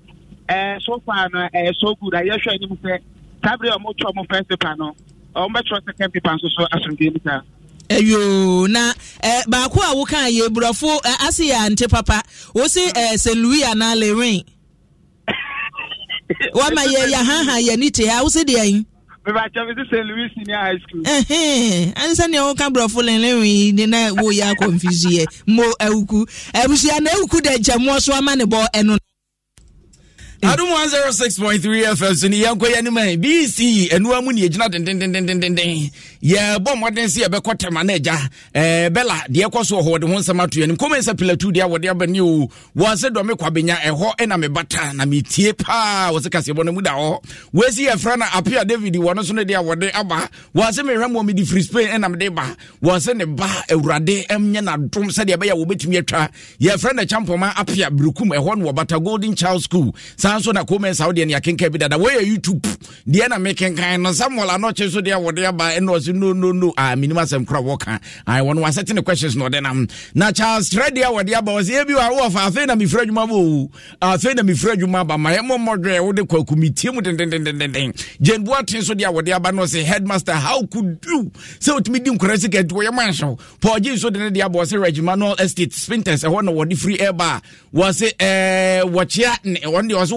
ɛɛ so far no ɛyɛ so good a yɛhwɛ anim sɛ saa berɛ a ɔmotwerɛ ɔmo first paper no ɔmobɛtwerɛ second paper nso so asomdwe mu ayo na eh, baako a woka yɛ burɔfo eh, ase yɛ ante papa wosi eh, St. louis anaa lerin wama yɛ yahaha yɛ ne te ha wosi deɛ ansa nea woka borɔfo lenlewi ne na woyɛ akɔmfisiɛ mo awuku abusua na awuku dɛ nkyɛmmoɔ so ama ne bɔ ɛno no adum 106.3 fm so ne yɛnkɔ yɛ anim a bc ɛnoa mu ne yɛgyina dendendendenden yɛbɔ mmɔden sɛ yɛbɛkɔ tɛma no agya bɛla deɛ ɛkɔ so ɔhɔ wɔde ho nsɛm ato anim kɔmɛ sɛ pilatu deɛ wɔde abani o wɔn sɛ dɔme kwabenya ɛhɔ ɛna mebata na metie paa wɔ sɛ kaseɛbɔ no mu da hɔ wɔasi yɛfrɛ no apia david no so no deɛ wɔde aba wɔn sɛ mehwɛ mmɔ mede firi spain ɛna mede ba wɔn sɛ ne ba awurade e ɛmnyɛ nadom sɛdeɛ ɛbɛyɛ wɔbɛtumi atwa yɛfrɛ no kyampɔma apia berekum ɛhɔ eh, no bata golden child school saa nso na comments awo deɛ ne akenka bi dada wɔyɛ youtube deɛ na mekenkan no samuel anɔkye so deɛ wɔde aba ɛna ɔse no no no ah, menim asɛm kora wɔka ah, wɔno wasɛte questions na ɔde nam na charles trɛde a wɔde aba ɔsɛ ɛbi wɔ afei na mefiri adwuma bɔ ah, afei na mefiri adwuma ba ma ɛmɔ mmɔdwerɛ wode kwaku metie mu dendendendenden jane boaten so deɛ a wɔde aba no ɔse headmaster how could you sɛ wotumi di nkora sika nti wɔyɛ manhyew paul gye nso de ne deɛ aba ɔse regimanal estate spinters ɛhɔ na wɔde firi ɛba wɔse eh, wɔkyea ne ɛwɔ deɛ ɔse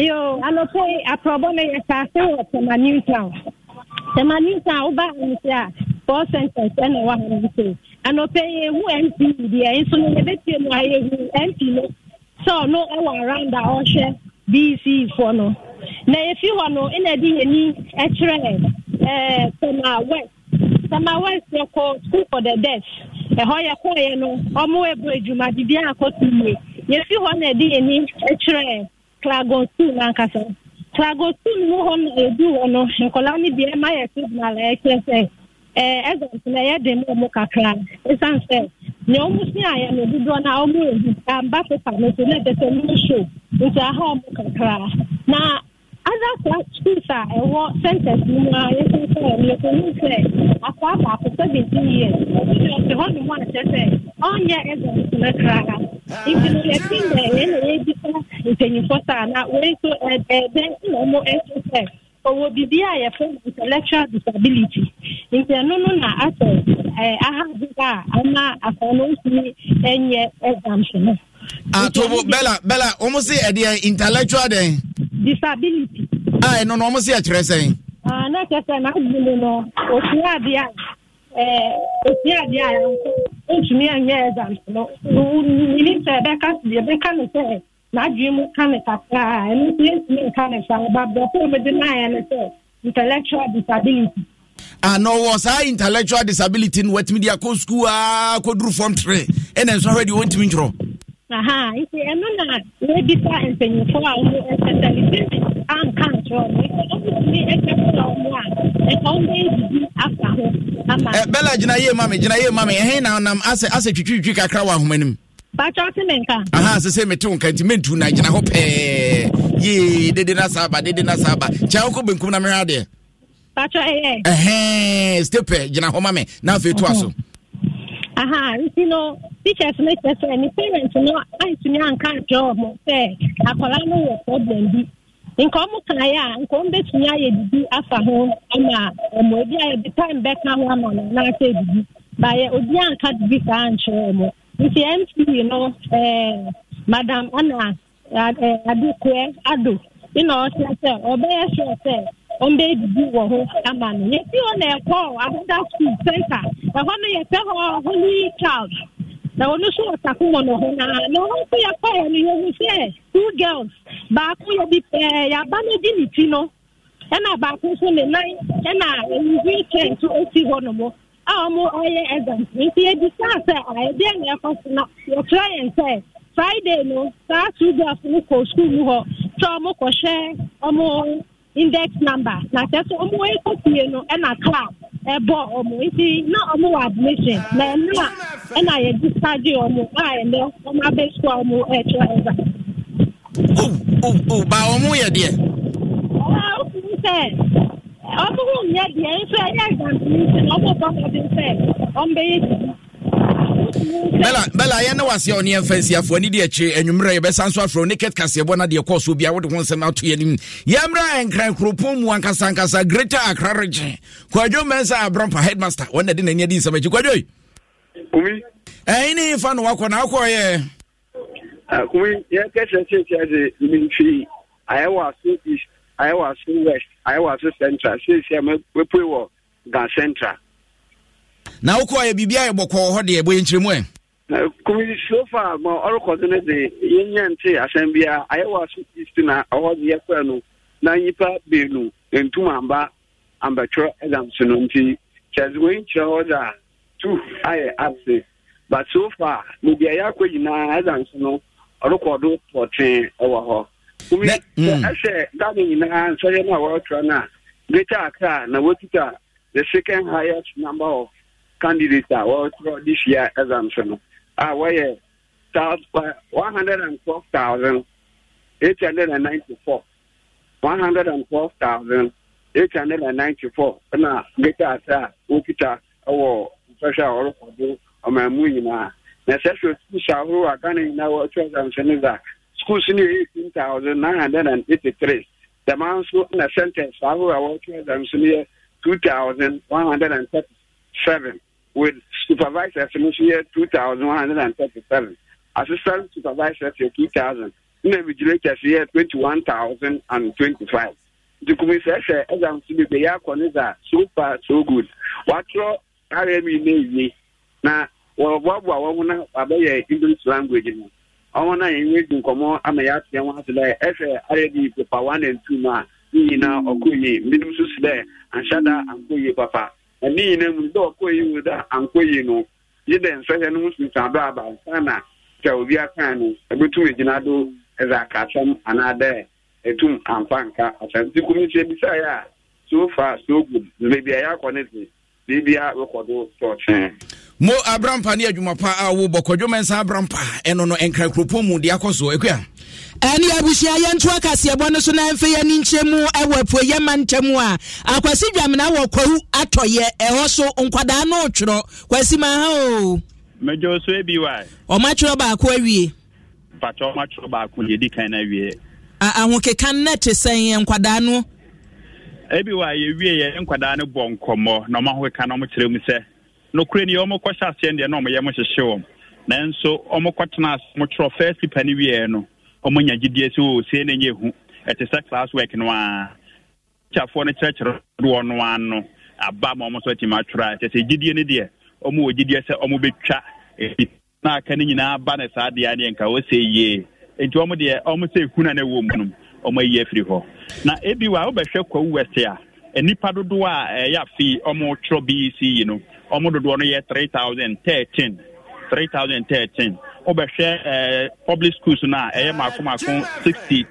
yo anɔpɛ eh, aprɔbɔ na yɛ saase wɔ sɛma new town sɛma new town baa anyị sɛ a four sentence ɛna ha hane no sɛ anɔpɛ yɛhu mp deɛ nso na no yɛbɛtie mu a yɛhu mp no sɛ ɔno ɛwɔ around a ɔhwɛ bc foɔ nọ. na yɛfi hɔ na ɛna ɛde yɛni ɛkyerɛ ɛɛ sɛma west Tama west yɛkɔ school for the deaf ɛhɔ yɛkɔɔyɛ no ɔmo ɛbɔ adwuma biribiara akɔto yie yɛfi hɔ na ɛde yɛni ɛkyerɛ klagotun ankasa klagotun mu hɔ no edu hɔ no nkɔla no bi ɛma yɛ signal ɛkyerɛ eh, sɛ ɛɛ na ɛyɛ dɛm ɔmo kakra esan sɛ nea ɔmo si ayɛ no dodoɔ na ɔmo ebi amba pepa no so na ɔmo so nti aha ɔmo kakra na ada akwa schools a ɛwɔ centers mu a yɛsensɛ yɛkɔhu sɛ akwa baako yie years ɔte hɔ nom a kyerɛ sɛ ɔnyɛ ɛdɛ nsoma ha nti no dɛ na yɛdi sa na wei na ɔmo sɛ ɔwɔ biribi a intellectual disability nti ɛno no na asɛ ɛɛ a ama akwa no nsumi ɛnyɛ atobo bella bella wɔn si ɛdeɛ intellectual disability. a ah, ɛno no ɔmo si ɛkyerɛ sɛn. Ah, na kyerɛ sɛ n'adu mu no osua adeɛ a eh, osua adeɛ a ntumi anyɛ exam no nini sɛ ɛbɛka deɛ ɛbɛka no sɛ n'adu mu ka ne kakra ɛno nso yɛntumi nka ne sa ɔba bɛfo omi de n'ayɛ no sɛ intellectual disability. ana ah, ɔwɔ saa intellectual disability no watumi de akɔ sukuu aa kɔduru fam tere ɛna nso ahwɛ deɛ wɔntumi ntwerɛ. aha nti ɛno na wɔbisa mpanyimfo a wɔn ɛsɛsɛ ebi anka ntorɔ no nti ɔmutumi ɛkɛkora wɔn a ɛka wɔn ɛdidi afa ho ama. ɛ eh, bɛla gyina yie mami gyina yie mami ɛhɛn na nam asɛ asɛ twitwitwi kakra wɔ ahoma nim. bàtà ɔtí mi nka. aha sese mi ti nka nti mi ntu na gyina hɔ pɛɛ yee dede na saa ba dede na saa ba kyɛn benkum na mi hɛ adeɛ. bàtà ɛyɛ. Eh, ɛhɛn eh. stepɛ gyina hɔ mami n'afɛ etu aso. aha nti no. teachers no kyerɛ sɛ ne parents na antumi anka akwaraa problem bi nka ɔmo kaeɛ a nka ɔmo bɛtumi ayɛ didi afa ho ama ɔmo ebi ayɛ de time bɛka ho ama no n'asɛ didi baayɛ obi anka didi saa nkyerɛ ɔmo nti no madam ana ado didi wɔ ama no yɛsi hɔ na ɛkɔ ahoda school center ɛhɔ no yɛsɛ hɔ holy child. na ɔno nso ɔtako wɔ no naa na ɔno nso yɛkɔɛ no sɛ two girls baako yɛ bi pɛɛ yɛaba no di ne ti no ɛna baako nso ne nan ɛna nso esi hɔ no mo a ɔmo ɔyɛ exam nti saa sɛ na ɛkɔ so na yɛkyerɛ yɛn friday no saa two girls no kɔ mu hɔ sɛ index number na kyerɛ sɛ ɔmo ekɔ fie no ɛna class ɛbɔ ɔmo nti na ɔmo wɔ admission na ɛna. ɛna yɛde sage ɔmo a ɛnɛ ɔmo abɛsua ɔmo ɛkyerɛ ɛza. o o o ba ɔmo yɛ deɛ. ɔmo ɔmo sɛ ɔmo ho nyɛ deɛ nso ɛyɛ ɛgbantini sɛ ɔmo bɔ ɔmo sɛ ɔmo bɛyɛ sisi. bɛla bɛla yɛn ne wase a ɔne yɛmfa nsiafoɔ ne deɛ akyire anwummerɛ yɛbɛsa nso afrɛ ne ket kaseɛbɔ no deɛ kɔɔ so bia wode ho nsɛm ato yɛnim yɛmmra ɛnkran kuropɔn mu ankasaankasa greta akra regye kwadwo mmɛn sɛ abrampa headmaster wɔn de n'ani adi nsɛm akyi kwadwoi kumi. ɛyi ni fa na wakɔ na akɔ ah, yɛ. kumi yɛ kɛsɛ seesia de mfinfin ayɛwɔ aso east ayɛwɔ aso west ayɛwɔ aso central seesia mɛpue wɔ gan central. na wokɔ yɛ biribi ayɛ bɔkɔɔ hɔ deɛ bɔyɛ nkyerɛmu ɛ. kumi so far ma ɔrekɔdo no de yɛnyɛ nte asɛm biara ayɛwɔ aso east na ɔhɔ de no na nyimpa beenu ntum amba ambɛtwerɛ ɛdam so no nti kyɛdze wɔyi kyerɛ hɔ a two ayɛ absent but so far ne deɛ akɔ nyinaa ɛda nso no ɔrekɔdo pɔtwee ɛwɔ hɔ omi ɛhyɛ dame nyinaa nsɔyɛ no a wɔretwerɛ no a greater na wɔkita the second highest number of candidates a wɔretwerɛ this year ɛda nso no a wɔyɛ one hundred and twelve thousand eight hundred and ɛwɔ sɔhwɛ a do ɔman mu nyinaa na sɛ hwɛ skuls ahorow a ghana nyinaa wɔ two thousand seven a schools no yɛ eighteen thousand nine hundred and eighty three dɛmaa nso na centers ahorow a wɔwɔ two thousand no yɛ two thousand one hundred and thirty seven with supervisors no nso yɛ two thousand one hundred and thirty seven assistant supervisors yɛ two thousand na vigilators yɛ twenty one thousand and twenty five nti kumi sɛ sɛ ɛdam so yɛ akɔ ne dza so far so good wɔatrɔ karịa m ime ezie na wọrọbọbụa ọnwụ na abịaghị english language m ọnwụ na enweghị nkọmọ ama ya tụya nwa asị dɛ ɛfɛ ayɛ de pepa one and two ma ne nyinaa ɔkɔ yie mbinom nso si dɛ anhyɛ da ankɔ papa ɛne nyinaa na dɛ ɔkɔ yie wɔ dɛ ankɔ yie nọ yi dɛ nsɛhɛ no ho sunsun adɔ aba nsa na sɛ obi aka no ɛbɛtum na do ɛdze aka asɛm anaa dɛ etum amfa nka atọ ti kum ebisa ya yɛ a so far so good beebi ya yɛ akɔ biribia wekɔdo sɔɔkye mo abrampa ne adwuma pa a wobɔ kɔdwoma nsa abrampa ɛno no ɛnkra kuropɔn mu de akɔ soɔ akua ɛne abusua yɛnto akaseɛbɔ no so na ɛmfɛ yɛne nkyɛ mu ɛwɔ apueyɛ ma ntam a akwasi dwamena wɔ kwawu atɔyɛ ɛhɔ so nkwadaa no kwasi ma ha o so bi wa baako awie pakyɛ baako kan no awie no te nkwadaa no ebi wa iwe yɛ nkwadaa no bɔ nkɔmmɔ na ɔma hoka na ɔmokyerɛ mu sɛ nokorɛ ni ɔmo kɔhyɛ aseɛ deɛ na ɔmoyɛ wɔm ase first no wieɛ no sɛ na hu ɛte sɛ class work no a kyafoɔ no kyerɛkyerɛ doɔ no aba ma ɔmo nso atumi atwerɛ a sɛ no deɛ wɔ sɛ na aka no nyinaa nka ɔsɛ yie nti ɔmo deɛ na mu ɔma yi efiri hɔ na ebi ebiwa wobɛhwɛ kwawu west a nnipa dodoɔ a ɛyɛ afei ɔmo twerɛ bec yi no ɔmo dodoɔ no yɛ 3013 3013 ɛɛ public schools no a ɛyɛ maako maako three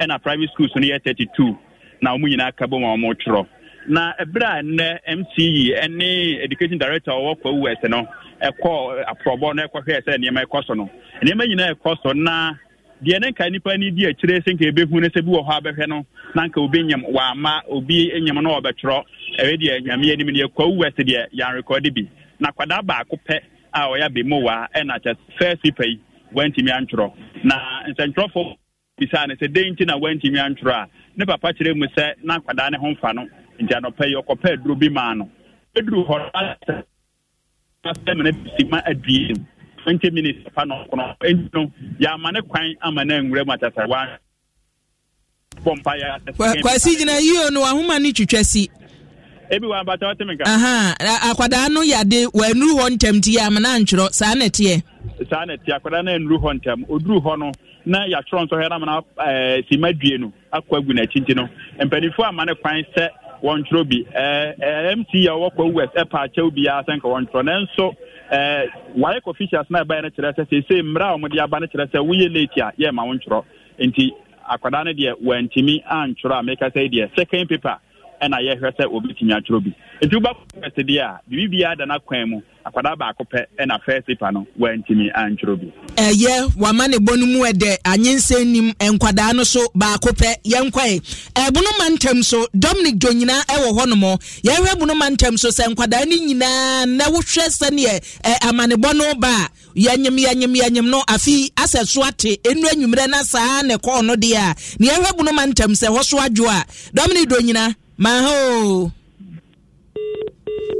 ɛna private schools no yɛ two na ɔmo nyinaa ka bom a ɔmo twerɛ na ebere a nne mce ɛne education director ɔwɔ kwawu west no ɛkɔ eh, aprɔbɔ no ɛkɔhwɛɛ sɛ nneɛma ɛkɔ so no nneɛma nyinaa ɛkɔ so na deɛ ne nka nipa ni di akyire sɛ nka ebehu ne sɛ bi wɔ hɔ abɛhwɛ no na nka obi nyam wama obi nyam no ɔbɛtwerɛ ɛyɛ deɛ nyame anim deɛ kwawu wɛsi deɛ yan rekɔdi bi na kwadaa baako pɛ a ɔyɛ abemowaa ɛna kyɛ fɛɛsi pɛ yi wantumi antwerɛ na nsɛntwerɛfo bisaa ne sɛ den nti na wantumi antwerɛ a ne papa kyerɛ mu sɛ na kwadaa ne ho mfa no nti anɔpɛ yi ɔkɔpɛ aduro bi maa no ɛduru hɔ no asɛ mene sima adue mu twenty minutes fa na ɔkɔnɔ ɛnti no yɛama ne kwan ama na nwura mu atasa wa kwasi gyina yio no ahoma ne twitwa si. ebi wa abata ɔte mi ka. akwadaa no yade wɔnuru hɔ ntɛm ti yɛ ama na ntwerɛ saa na ɛteɛ. saa na ɛteɛ akwadaa na ɛnuru hɔ ntɛm oduru hɔ no na yɛatwerɛ nsɔhwɛ na amana e, ɛɛ sima due no akɔ agu n'akyi nti no mpanimfoɔ ama ne kwan sɛ wɔntwerɛ bi ɛɛ ɛɛ mc yɛ ɔwɔ kɔ west ɛpa akyɛw bi yɛ asɛn ka wɔntwerɛ nanso ɛɛ wayɛ kɔ officials na ɛbɛyɛ no kyerɛ sɛ sɛ sɛ mmerɛ a wɔde aba no kyerɛ sɛ woyɛ late a yɛ wo ntwerɛ nti akwadaa no deɛ wantumi antwerɛ a meka sɛ deɛ second paper ɛna yɛhwɛ sɛ obɛtumi atwerɛ bi nti wobɛkɔfɛse deɛ a biribibiaa da no kwan mu akwadaa baako pɛ ɛna fɛsipa no wantumi antwerɛ bi ɛyɛ wama ne bɔ no mu ɛdɛ anyensɛ nim nkwadaa no so baako pɛ yɛnkwae ɛbonoma ntɛm so dominic dwo nyinaa ɛwɔ hɔ nom yɛhwɛ bonoma ntɛm so sɛ nkwadaa no nyinaa na wohwɛ sɛneɛ amanebɔ no ba a yɛnyem yɛnyem yɛnyem no afei asɛ so ate ɛnu anwummerɛ na saa ne kɔɔ no deɛ a ne yɛhwɛ bonoma ntɛm sɛ hɔ so adwo a dominic dwo nyinaa maha o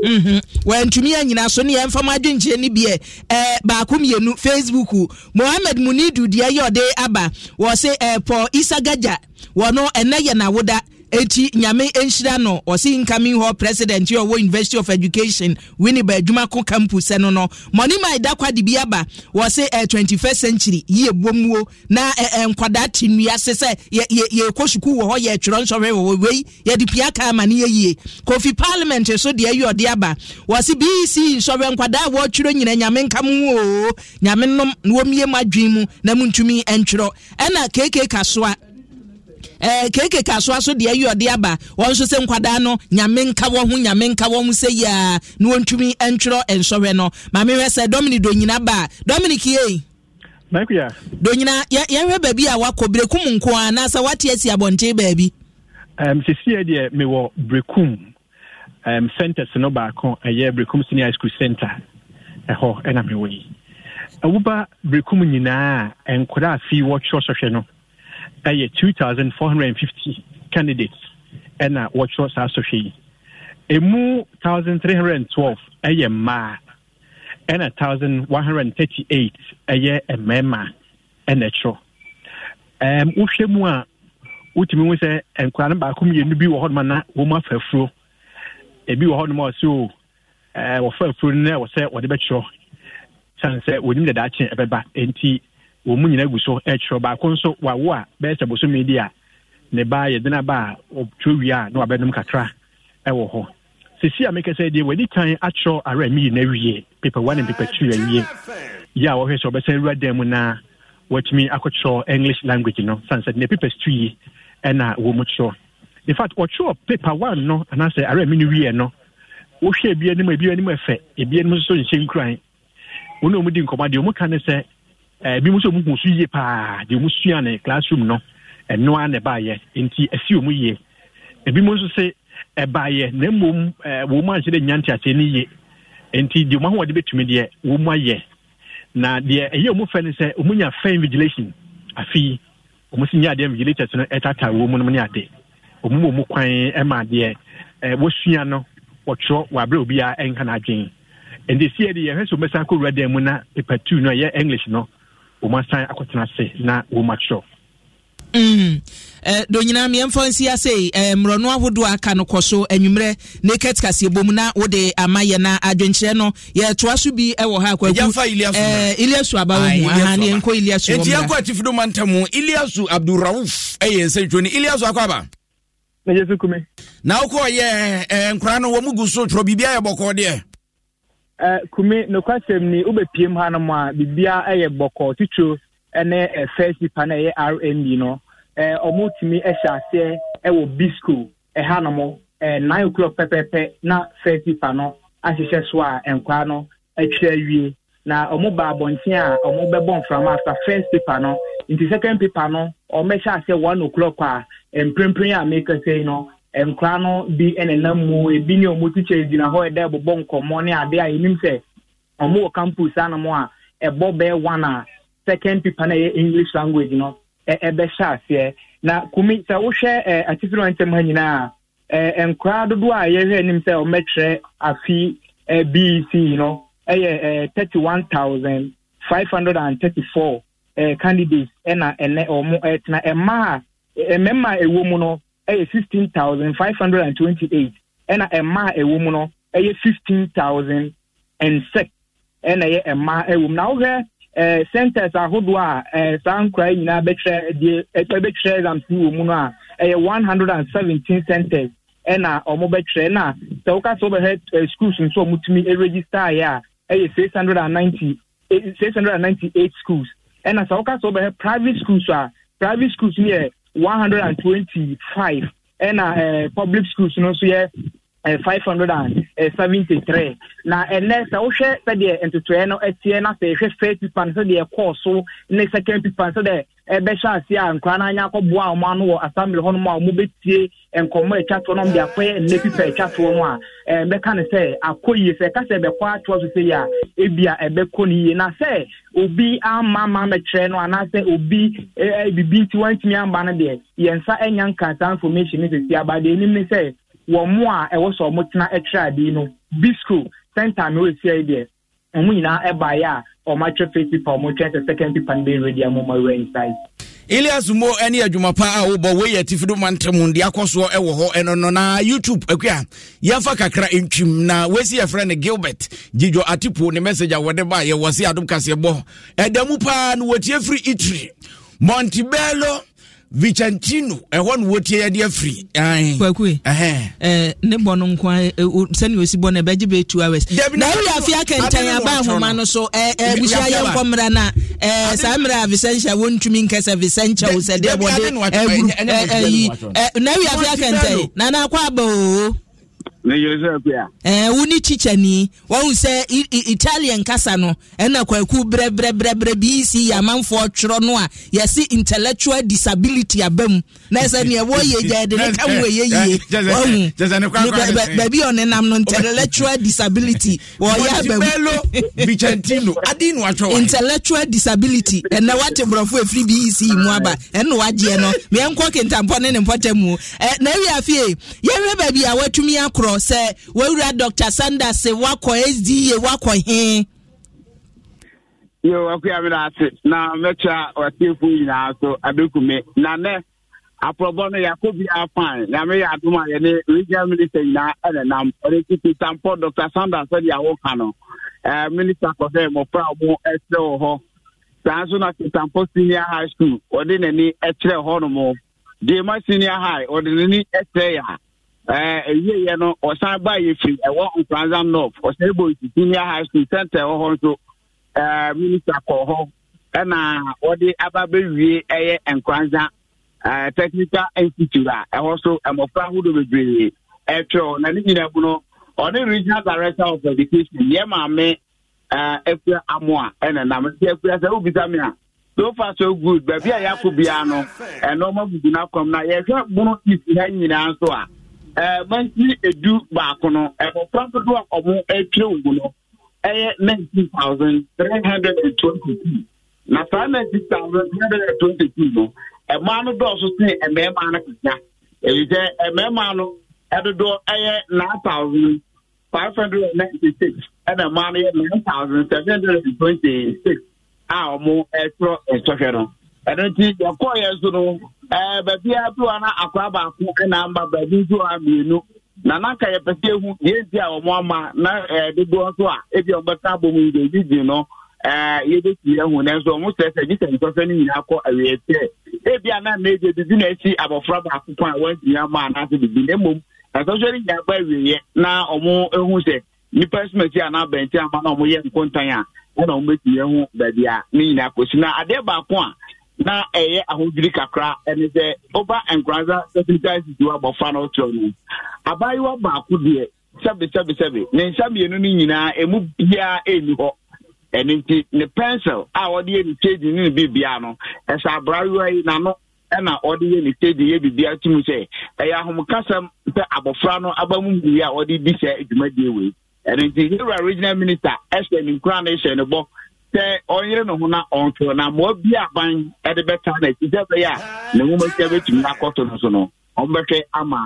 mhm. wɔantumi yɛ nyina so ne yɛmfa m adwenkyerɛ no biɛ eh, baako mmienu facebook mohammed munidu deɛ yɛ ɔde aba wɔ se eh, isa gaja wɔno ɛnɛ yɛ nawoda eti nyame nhyira no ɔsi incoming hall president yi ɔwɔ university of education winneba adwumako campus ɛno no mɔni maa kwa de bi aba wɔsi twenty first century yie bom na ɛ ɛ nkwadaa te nnua se sɛ yɛ yɛ yɛ kɔ sukuu wɔ hɔ yɛ nsɔhwɛ wɔ wei yɛde pia kaa ma ne yɛ kofi parliament so deɛ yɛ ɔde aba wɔsi bec nsɔhwɛ nkwadaa wɔtwerɛ nyina nyame nka mu oo nyame nom wɔn mu adwin mu na mu ntumi ntwerɛ ɛna keke kasoa ɛɛ eh, keke kasoa so deɛ ɛyɛ ɔde aba wɔn nso sɛ nkwadaa no nyame nka wɔn ho nyame nka wɔn ho sɛ yia na wɔntumi ntwerɛ nsɔhwɛ no maame hwɛ sɛ dominic donyina ba dominic yie. Makia. Donyina yɛhwɛ baabi a wakɔ Brekum nko a anaasɛ wate asi abɔnten baabi. Um, sesie deɛ mewɔ Brekum um, centers no baako ɛyɛ Brekum senior school center ɛhɔ ɛna mewɔ yi. Ɛwoba Brekum nyinaa a nkwadaa fi wɔtwerɛ sɔhwɛ no ɛyɛ two thousand four hundred and fifty candidates ɛna wɔtwerɛ saa sɔhwɛ yi emu thousand three hundred and twelve ɛyɛ mmaa ɛna thousand one hundred and thirty eight ɛyɛ mmarima ɛna ɛtwerɛ ɛɛm wohwɛ mu a wotumi hu sɛ nkwadaa no baako mmienu bi wɔ hɔnom na wɔn afa afuo ebi wɔ hɔnom a ɔsi o ɛɛ wɔfa afuo no na wɔsɛ wɔde bɛtwerɛ san sɛ wɔnim dada akyen ɛbɛba nti wɔn mu nyinaa gu so ɛkyerɛ baako nso wawo a bɛyɛ sɛ bosome di a ne ba yɛde na ba a ɔtwerɛ wie a na wabɛnom kakra ɛwɔ hɔ sisi a mekasa deɛ wɔde kan akyerɛ ara mi na awie pepa one ne pepa two awie yɛ a wɔhwɛ sɛ ɔbɛsan awura dan mu na wɔatumi akɔkyerɛ english language no sansɛ ne pepa two yi ɛna wɔn mu kyerɛ in fact wɔtwerɛ pepa one no anaasɛ ara mi no wie no wohwɛ ebi anim ebi anim ɛfɛ ebi anim nso nhyɛ nkuran wɔn a wɔn di nkɔmɔ adeɛ wɔn ka ne sɛ ebi eh, mo nso mu kun so yie paa deɛ mo sua ne classroom no ɛno ara na ɛbaayɛ nti ɛsi wɔn yie ebi mo nso se ɛbaayɛ na mmom ɛɛ eh, wɔn mu anhyɛ dɛ nya nteaseɛ ne yie nti deɛ mo ahoɔden betumi deɛ wɔn mu ayɛ na deɛ ɛyɛ wɔn fɛ ne sɛ wɔn nya fɛn vigilation afi wɔn si nya adeɛ vigilators no ɛtata wɔn mu no ne ade wɔn mu wɔn kwan ɛma adeɛ ɛɛ eh, wɔsua no wɔtwerɛ wɔ abere obiara ɛnka n'adwene nti si yɛ yɛhwɛ sɛ wɔn bɛsa wura dan mu na paper two no ɛyɛ english no wɔn asan akɔtena ase na wɔn atwerɛ Mm. Eh, do nyinaa mmiɛmfa nsi ase eh, mmorɔno ahodoɔ aka no kɔ so anwummerɛ naked kaseɛ bom na wode ama yɛ na adwenkyerɛ no yɛtoa so bi wɔ ha kwaku eh, iliasu aba wɔ mu aha ne yɛnkɔ iliasu wɔ yɛnkɔ atifo do manta mu iliasu abdurauf ɛyɛ nsɛntwo no iliasu akɔ aba na yɛsu kume na wokɔɔyɛ eh, nkora no wɔ mu gu so twerɛ biribia yɛ bɔkɔɔ deɛ Eh, kume nokwasɛm ni wobɛpiem hanom a biribia eh, yɛ bɔkɔ titiro ne eh, first nipa no ɛyɛ rnd no ɔmotumi hyɛ aseɛ wɔ ɛha hanom nine o'clock pɛpɛpɛ na first nipa no ahyehyɛ so a nkwa no atwa awie na ɔmo ba abɔnten a ɔmo bɛbɔ mframa after first paper no nti second paper no ɔmo bɛhyɛ aseɛ one o'clock a mprempren a meka sɛ yi no nkwadaa no bi nenam mu ebi ne wɔn tikya gyina hɔ ɛdɛ bobɔ nkɔmɔ ne a yɛnim sɛ wɔn wɔ campus anam a ɛbɔ bɛɛ one a second paper na ɛyɛ english language no ɛbɛhyɛ aseɛ na kumi sɛ wohwɛ ɛ atitiri wɔn ntɛm ha nyinaa ɛ nkwadaa dodoɔ a yɛhwɛ anim sɛ afi ɛ bec ɛyɛ ɛ candidates ɛna ɛnɛ mmaa a ɛwɔ ɛyɛ sixteen thousand five hundred and twenty-eight ɛna mmaa ɛwɔ mu no ɛyɛ fifteen thousand and six ɛna a mmaa ɛwɔ mu na wohɛ ɛɛ centers ahodoɔ a ɛɛ saa nkora nyinaa bɛtwerɛ deɛ ɛbɛtwerɛ exams wɔ a ɛyɛ one hundred and seventeen centers ɛna wɔn bɛtwerɛ na sɛ woka sɛ wɔbɛhɛ ɛɛ schools a register ɛregister yɛ a ɛyɛ six hundred and ninety six hundred and ninety-eight schools ɛna sɛ woka private schools a private schools yɛ. 125. hundred ɛna ɛɛ uh, uh, public schools no nso yɛ ɛɛ five na ɛnɛ sɛ wohwɛ sɛdeɛ ntotoɛ no ɛteɛ na sɛ ɛhwɛ first paper no sɛdeɛ ɛkɔɔ so ne second paper no sɛdeɛ ɛbɛhyɛ ase a nkora no anya akɔboa ɔmo ano wɔ assembly hɔ nom a ɔmo bɛtie nkɔmmɔ atwa toɔ nom de akɔyɛ nnɛ pipa atwa toɔ no a ɛbɛka ne sɛ akɔ yie sɛ ɛka sɛ ɛbɛkɔ atoɔ so sɛ yie a ebia ɛbɛkɔ no yie na sɛ obi ama ama mɛkyerɛ no anaasɛ obi bibi nti wantumi amba no deɛ yɛn nsa nya nka information ne sisi aba deɛ enim ne sɛ wɔn mo a ɛwɔ sɛ ɔmo ɔmo nyinaa ɛbaeɛ a ɔmo atwa first paper sɛ second paper no bɛ ready a mo ma wura inside. Ilias Mo ne adwuma pa a wobɔ woyɛ tifido ma ntam de akɔ soɔ hɔ ɛno no na youtube akua a yɛmfa kakra ntwim na wɔsi yɛfrɛ no gilbert gyidwo atipo ne message a wɔde baa yɛwɔ se adom kaseɛ bɔ ɛda mu paa no wɔtie firi itiri montebello vicentino eh, ɛhɔ eh, no wɔtie yɛde afiri kwakue ne bɔ no nko sɛne ɔsi bɔ no ɛbɛgye bɛ two hours na woyɛ afe akɛntɛn aba ahoma no so abusua yɛnkɔ mmara no a saa mmerɛ a vicentia wɔntumi nkɛ sɛ vicentia wo sɛdeɛ deɛ bɔde na woyɛ afe akɛntɛn nana akɔ aba oo wo ne kyikyani wahu sɛ italian kasa no ɛna kwaku brɛbrɛbrɛbrɛ bc yɛ amanfoɔ twerɛ no a yɛse intellectual disability aba mu na ɛsɛ neɛ wɔyɛ gya de ne ka mu ɛyɛ yie wahu baabi ɔnenam no intellectual disability wɔyɛ aba mu intellectual disability ɛnɛ wate borɔfo ɛfiri bec mu aba ɛne wagyeɛ no meɛnkɔ kentampɔ ne ne mpɔtam mu na awiafie yɛhwɛ baabi a watumi akorɔ no sɛ wawura dr sanders wakɔ sda wakɔ he yo akua me ase na mɛkyɛ ɔtiefo nyinaa so abɛkume na aprɔbɔ no yɛakɔ bi afan na meyɛ adom a yɛne regional minister nyinaa ɛne nam ɔde titi tampɔ dr sanders awoka no minister kɔ sɛ mmɔfra ɛkyerɛ wɔ hɔ saa nso na senior high school ɔde n'ani hɔ no deɛma senior high ɔde n'ani ɛwieyɛ eh, no ɔsan ba yɛ firi ɛwɔ nkransa north ɔsan bɔ senior high school center ɛwɔ hɔ nso eh, minister kɔ hɔ ɛna wɔde aba bɛwie ɛyɛ nkransa eh, technical institute a ɛhɔ so mmɔfra ahodoɔ bebree ɛtwerɛ na ne nyinaa mu no ɔne regional director of education yɛ maame afura amoa ɛna nam nti afura sɛ wobisa me a so far so good baabi a yɛakɔ biara no ɛnɔɔma bugu no na yɛhwɛ bono isi ha nyinaa nso a Eh, mantini edu baako no mmɔfra eh, dodoɔ a ɔmo atwere wo no ɛyɛ nineteen thousand na saa nineteen thousand three hundred and twenty two no mmaa no dɔɔso no kasa ebi sɛ no ɛyɛ nine thousand five hundred and ninety six ɛna no yɛ nine thousand a ɔmo ɛtwerɛ ɛno nti yɛkɔɔyɛ so no baabiaa bi wa na akwaa baako na ama baabi nso a mmienu na n'aka yɛpɛ sɛ ehu yɛnti a wɔn ama na dodoɔ nso a ebi a wɔbɛka abom yi deɛ gyi no yɛbɛsi ɛhu nanso wɔn sɛ sɛ nyinaa kɔ awie ebi na mmeedi bibi na esi abɔfra baako a wɔnti ama na mmom asɔsɔ nyinaa ba na wɔn ehu sɛ nipa ama na wɔn yɛ nkontan a ɛna wɔn bɛsi ɛhu baabi a ne nyinaa na adeɛ baako na ɛyɛ ahodwiri kakra ɛne sɛ ɔba nkransa sɛsintaisis wa bɔfa no ɔkyerɛ no abaayewa baako deɛ sɛbesɛbesɛbe ne nsa mmienu no nyinaa ɛmu biara ɛnni hɔ ɛno nti ne pencil a ɔde yɛ ne tedi ne ne biribia no ɛsɛ abrayewa yi n'ano ɛna ɔde yɛ ne tedi yɛ biribia tum sɛ ɛyɛ ahomekasɛm sɛ abɔfra no aba mu a ɔde di sɛ dwumadie wei ɛno nti yɛwura regional minister ɛhyɛ ne nkura no ɛhyɛ ne bɔ sɛ ɔnyere ne ho na ɔntwe na mmoa bi aban de bɛta na ɛsi sɛ bɛyɛ a ne nwoma sia bɛtumi akɔto no so no ɔmbɛhwɛ ama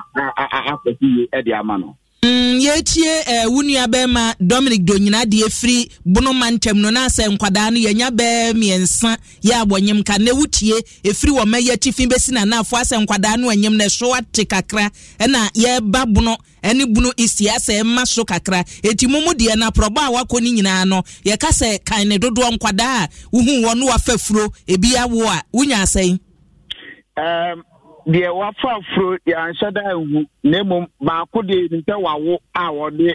afɛ si yie de ama no Mm, yɛtie eh, wo nua dominic donyina deɛ firi bonoma ntɛm no na sɛ nkwadaa no yɛnya bɛɛ mmiɛnsa yɛ abɔnyem ka na wotie ɛfiri wɔ mɛyɛ tifi bɛsi nanaafo asɛ nkwadaa no anyim na ɛso ate kakra ɛna yɛba bono ɛne bunu isia sɛ ɛma so kakra eti mu mu deɛ na prɔba a wakɔ ne nyinaa no yɛka sɛ kan ne dodoɔ nkwadaa a wohu wɔn no wafa furo ebi awo a wonya asɛn. Um, deɛ wafa afuro yɛanhyɛ da nhu na mmom baako deɛ nim sɛ wawo a wɔde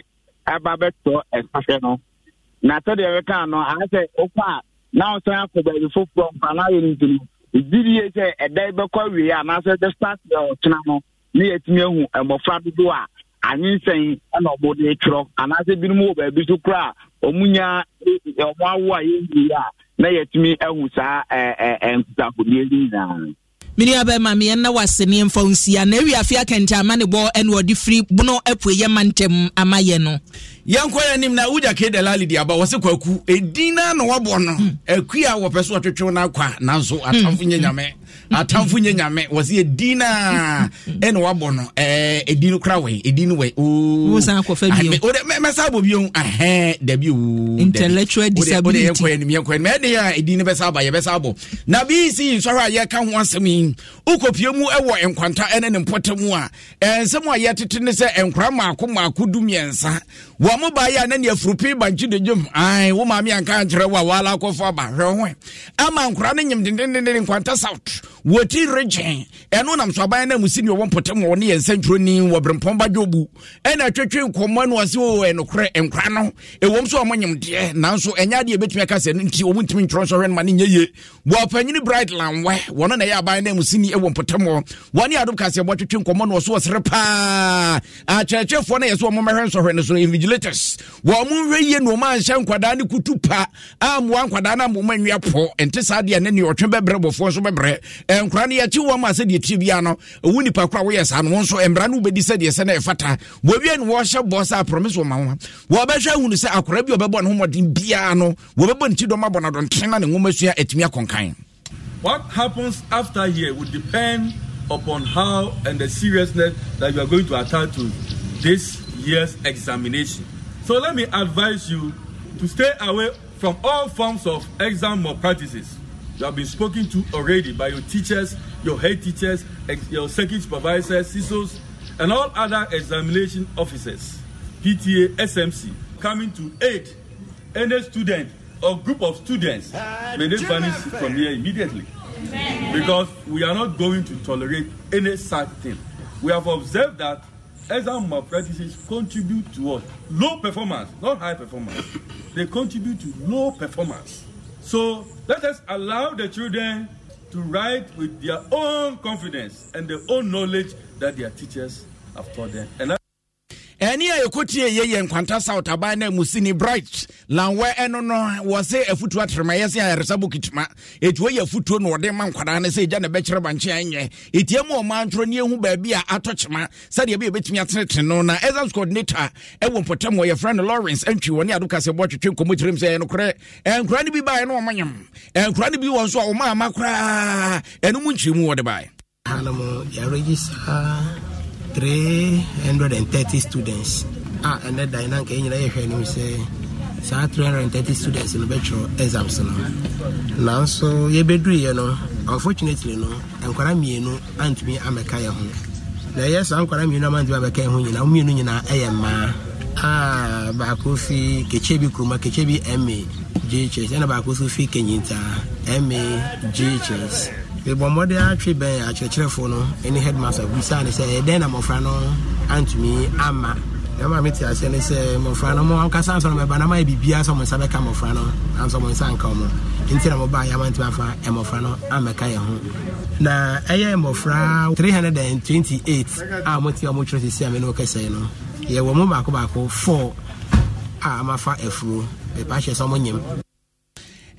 ɛba bɛtɔ ɛsahwɛ no na sɛdeɛ ɛbɛka no ayɛ sɛ wokɔ a na wosan akɔ baabi foforɔ mfa na ayɛ no nti no gyidie sɛ ɛda bɛkɔ awie anaasɛ the start deɛ ɔtena no ne yɛatumi ahu mmɔfra dodoɔ a anyensɛn ɛna ɔmo de twerɛ anaasɛ binom wɔ baabi so koraa ɔmo nyaa ɔmo awo a yɛnwie a na yɛatumi ahu saa ɛɛ ɛɛ nkutahodie nyinaa mini abɛma meyɛ na waseneɛ mfa nsia na awiafe akɛntɛ ama ne bɔ ɛne ɔde firi bono apue yɛ ma ama yɛ no yɛnkɔ yɛ anim na wogya ke dalali de aba wɔ se kwaku ɛdin na na wɔbɔ no akui hmm. a wɔpɛ so wɔtwetwew no akɔ a nanso hmm. atamfo nyɛ hmm. nyame atamfo nyɛ nyame wɔ se ɛdin no a ɛne wɔabɔ no ɛdin no kora wei ɛdin no wɛmɛsa bɔ bio ah, ahɛ dabi oɛkɔ anim yɛkɔ anim ɛdeɛ a ɛdin no bɛsa aba yɛbɛsa bɔ na bisi nsɔhwɛ a yɛka ho asɛm yi wokɔpie mu ɛwɔ nkwanta ɛne ne mpɔta mu a ɛnsɛm a yɛtete ne sɛ nkora maako maako du mmiɛnsa wɔn mo baa a ne nea furupi ba gyi de dwom ae wo maame anka nkyerɛ wo a wala akɔfo aba hwɛ ho ama nkora no nyim dendendenden nkwanta south wɔti regyen ɛno nam so aban no amusi ne ɔwɔ mpɔtam wɔ ne yɛ nsɛntwerɛni wɔ berempɔn ba dwobu ɛna atwatwe nkɔmmɔ no ɔse o ɛnokorɛ nkora no ɛwɔm so ɔmɔ nyemdeɛ nanso ɛnyɛ adeɛ ɛbɛtumi aka sɛ no nti ɔmu ntumi ntwerɛ nsɔhwɛ no ma ne nyɛ ye wɔpanyini bright lanwɛ wɔno na ɛyɛ aban no amusini ɛwɔ mpɔtam wɔ wɔne adom kaseɛ bɔtwetwe nkɔmmɔ no ɔso ɔsere paa akyerɛkyerɛfoɔ no yɛ sɛ ɔmɔmɛhwɛ nsɔhwɛ no so invigilators wɔ mo nhwɛ yie no ɔma nhyɛ nkwadaa ne kutu pa ammoa nkwadaa no amoma nwiapɔ ɛnte saa deɛ ne ne ɔtwe bɛbrɛ bɔfoɔ nso bɛbrɛ no yɛkye wɔ ma tiri bia no nipa kora woyɛ saa no wo nso mmara no wobɛdi sɛ ɛfata no wɔhyɛ bɔ sɛ wɔ ma wɔbɛhwɛ ahunu sɛ akora bi ɔbɛbɔ ne homɔden no wɔbɛbɔ ne ti dɔm na ne nwoma atumi akɔnkan What happens after here will depend upon how and the seriousness that you are going to attach to this year's examination. So let me advise you to stay away from all forms of exam malpractices. You have been spoken to already by your teachers, your head teachers, your circuit supervisors, CISOs, and all other examination officers, PTA, SMC, coming to aid any student or group of students. May they vanish from here immediately. Because we are not going to tolerate any such thing. We have observed that exam malpractices contribute to Low performance, not high performance. They contribute to low performance. So let us allow the children to write with their own confidence and their own knowledge that their teachers have taught them. And ɛne a yɛkɔtie yɛyɛ nkwanta south aban no musini bright lanwɛ ɛno no wɔ sɛ afotuo atremayɛ sɛ ayaresa bokituma ɛti wɔyɛ afotuo na wɔde ma nkwadaa no sɛ ɛgya na ɛbɛkyerɛ bankye anyɛ ɛtia mu ɔma ntorɔ ne ɛhu baabi a atɔ kyema sɛdeɛ bɛ yɛbɛtumi atenetene no na ɛsas coordinator ɛwɔ mpɔtam wɔ yɛfrɛ no lawrence antwi wɔ ne ado kasɛ bɔ twetwe nkɔmmɔ tirim sɛ ɛnokorɛ ɛnkora no bi baeɛ na ɔmanyam ɛnkora no bi wɔ nso a ɔmaama koraa ɛno mu nkyerɛ mu wɔde baeɛ 330 students a ɛnɛ dan na nka ɛnyina yɛhwɛ anim sɛ saa 330 students no bɛtwerɛ exams no nanso yɛbɛduruiɛ no unfortunately no nkwara mmienu antumi amɛka yɛ ho na ɛyɛ saa nkwara mmienu amantumi amɛka yɛ ho a baako fi kɛkyɛ bi kuruma ma ghs ɛna baako fi ma ghs mebɔ mmɔde atwe bɛn akyerɛkyerɛfoɔ no ne headmaster busaa ne sɛ ɛdɛn na mmɔfra no antumi ama ɛma mete aseɛ ne sɛ mmɔfra no mo ankasa ansɔ no mɛba na mayɛ biribiaa sɛ mo nsa bɛka mmɔfra no ansɔ mo nsa nka mu nti na mobaa yɛma ntimi afa mmɔfra no amɛka yɛ ho na ɛyɛ mmɔfra 328 a mote a motwerɛ sesi a me ne wokɛsɛe no yɛwɔ mu baako baako 4 a amafa afuro mepa hyɛ sɛ mo nyim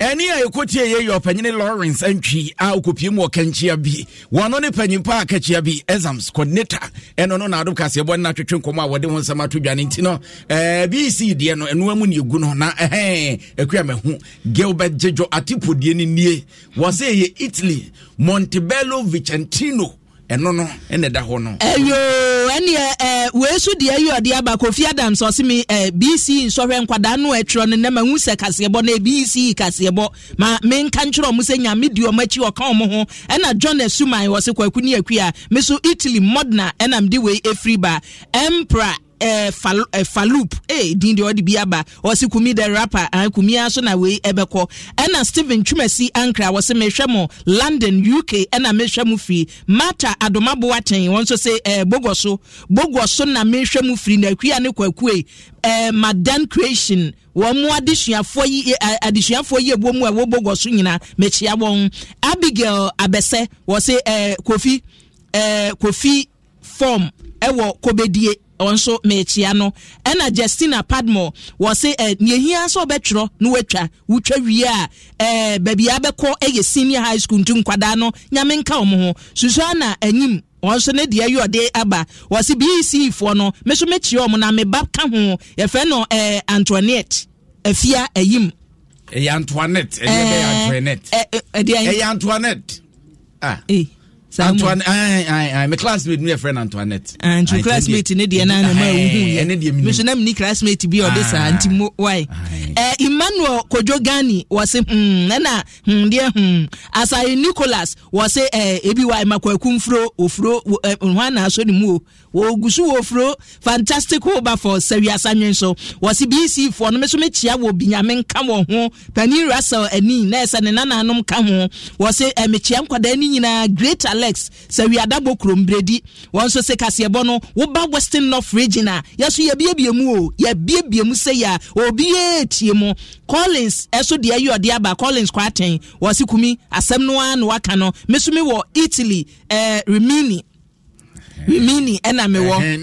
ɛne a ɛkɔtie yɛ yɛ ɔpanyine lawrence antwi a ɔkɔpiemu mu ɔkankyia bi wɔno ne panyimpa a kakyia bi exams coordinator ɛno no naadom kaseɛbɔ no natwetwe nkɔmmɔ a wɔde ho nsɛm ato dwane nti no bc deɛ no ɛnoa mu ne ɛgu no na ɛhɛ akua mahu gilbert gyedwo atipodie no nie wɔ sɛ ɛyɛ italy montebello vicentino ɛno no ɛna ɛda hɔ no. ɛyoo ɛni ɛ wee so deɛ yi ɔde aba kofi adams ɔsi mi ɛ bc nsɔhwɛ nkwadaa no ɛtwerɛ no nɛma nwusɛ kaseɛbɔ na bc kaseɛbɔ ma mi nka ntwerɛ ɔmo sɛ nyame di ɔmo akyi ɔka ɔmo ho ɛna john esuman wɔsi kwaku ni akuya mi italy modena ɛna mi de wei efiri ba emperor eh, fal, eh, Faloop eh, din deɛ ɔde bi aba ɔsi kumi the rapa ah, eh, kumi aso na wei ɛbɛkɔ ɛna steven Twumasi Ankra wɔsi mehwɛ mo London UK ɛna mehwɛ mo firi Martha Adoma Boateng wɔn nso sɛ eh, Bogo so Bogo so na mehwɛ mo firi na akuya ne kwakue eh, Madan Creation wɔn mu adesuafoɔ yi eh, eh, adesuafoɔ yi ebuo mu a ɛwɔ Bogo so nyinaa mekyia wɔn Abigail Abese wɔsi eh, Kofi eh, Kofi form ɛwɔ eh, Kobedie. nso mekyia no ɛna justina padmore wɔ se ɛ nehia sɛ ɔbɛtwerɛ na watwa wotwa wie a ɛɛ baabi abɛkɔ ɛyɛ senior high school ntu nkwadaa no nyame nka wɔn ho susua na anim wɔn nso ne deɛ yɛ ɔde aba wɔsi bec e foɔ no me nso mekyia wɔn na meba ka ho yɛfrɛ no ɛɛ antoinette afia ayim. ɛyɛ antoinette ɛyɛ antoinette ɛyɛ antoinette ah. Hey. me classmate no yɛfrɛ no antoinette nti classmate ne deɛ no anama wohumeso na meni classmate bi ɔde saa nti mo eh, emmanuel kodwo gani wɔse ɛna deɛ hmm, hmm, hmm. asaye nicholas wɔse eh, ebi wa makwaku mfuro ofuro hɔ anaaso ne mu o wɔgu so wɔfuro fantastic hoba for sawiasa nwen so wɔse bc foɔ no meso mekyia wɔ binyame nka wɔn ho pani russell ani na ɛsɛ ne nananom ka ho wɔse mekyia nkwadaa no nyinaa great alert complex sɛ wiadabɔ kurombredi wɔn nso sɛ kaseɛbɔ no woba western north region a yɛso yɛbiebie mu o yɛbiebie mu sɛ yɛ a obiara tie mu collins ɛso deɛ yi ɔde aba collins kwaten wɔsi kumi asɛm no ara na waka no mesumi wɔ italy ɛɛ eh, rimini rimini ɛna mi wɔ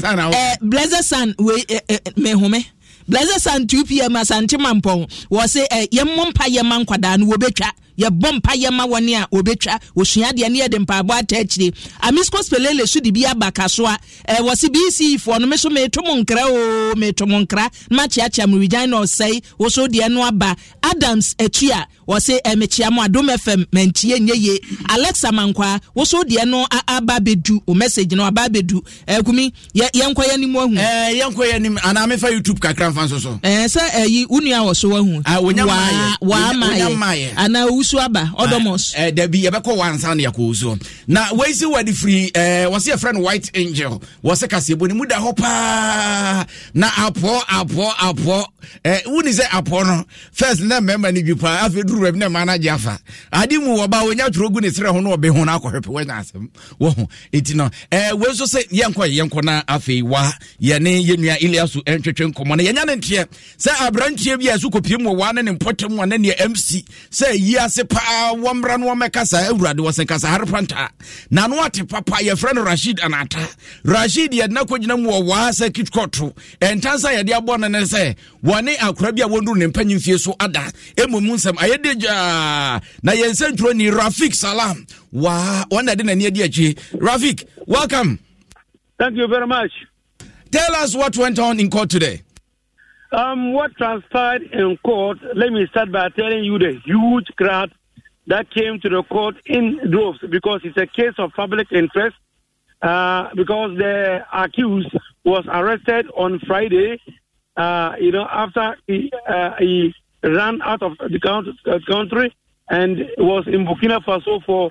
ɛɛ blazer san wei ɛɛ mehome. blazer san 2 pm asante mampɔn wɔ se eh, yɛmmɔ mpa yɛma nkwadaa no wɔbɛtwa yɛbɔ mpa ma wɔne a wɔbɛtwa wɔsua adeɛ ne yɛde mpaabɔ ata akyire amisco spelele so de bi aba ka so a ɛwɔ se bc foɔ no me so meto mo nkra o meto mo nkra na makyeakyea mo regyan na ɔsɛe wo so deɛ no aba adams akyi a wɔse ɛmekyea mo adom fm mantie nyɛ ye alexa mankwa wo so deɛ no aba abɛdu wo message no aba abɛdu akumi yɛnkɔ yɛ anim ahu yɛnkɔ yɛ anim anaa mefa youtube kakra mfa nso so sɛ ɛyi wo nua wɔ so wahu waamaayɛ anaa kusu aba odomos. ɛɛ eh, dɛbi yɛbɛkɔ wansan ne yɛkɔ wusu na wɔyisi wɔde firi eh, ɛɛ wɔsi yɛ friend white angel wɔsi kasi bɔ ni mu da hɔ paa na apɔ apɔ apɔ ɛɛ eh, wuni sɛ apɔ no first na mɛma ni bi paa afei duru wɛbi na mana gye afa adi mu wɔba wɔnya turo gu ne srɛ ho na ɔbɛ ho na akɔ hwɛpɛ wɔnya asɛm wɔho eti no ɛɛ wɔn nso sɛ yɛnkɔ yɛnkɔ na afei wa yɛne yɛnua iliasu ɛntwetwe nkɔmɔ no yɛnya ne nteɛ sɛ aberanteɛ bi a yɛso kɔpiem wɔ wa ne ne mpɔtam wa ne ne mc sɛ yia ase paa wɔmmra no wɔmmɛka saa awurade wɔ sɛ kasa hare panta na no ate papa yɛfrɛ no rashid anata rashid yɛde na kɔgyina mu wɔ waa sɛ kitkoto sa yɛde abɔ no ne sɛ wɔne akora bi a wɔnduru ne mpanyi mfie so ada ɛmmom nsɛm ayɛ de gyaa na yɛnsɛ ni rafik salam waa ɔna de n'ani adi akyi rafik welcome thank you very much tell us what went on in court today Um, what transpired in court, let me start by telling you the huge crowd that came to the court in droves because it's a case of public interest. Uh, because the accused was arrested on Friday, uh, you know, after he, uh, he ran out of the uh, country and was in Burkina Faso for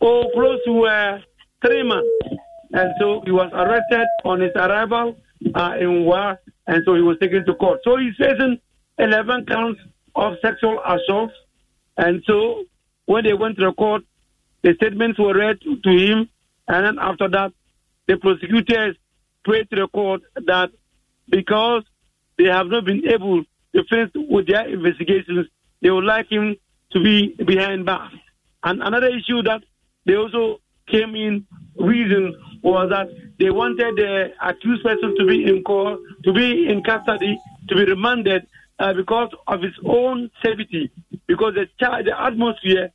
oh, close to uh, three months. And so he was arrested on his arrival uh, in Wa and so he was taken to court. So he's facing 11 counts of sexual assault, and so when they went to the court, the statements were read to him, and then after that, the prosecutors prayed to the court that because they have not been able to finish with their investigations, they would like him to be behind bars. And another issue that they also came in reason was that they wanted the uh, accused person to be in court, to be in custody, to be remanded uh, because of his own safety, because the, char- the atmosphere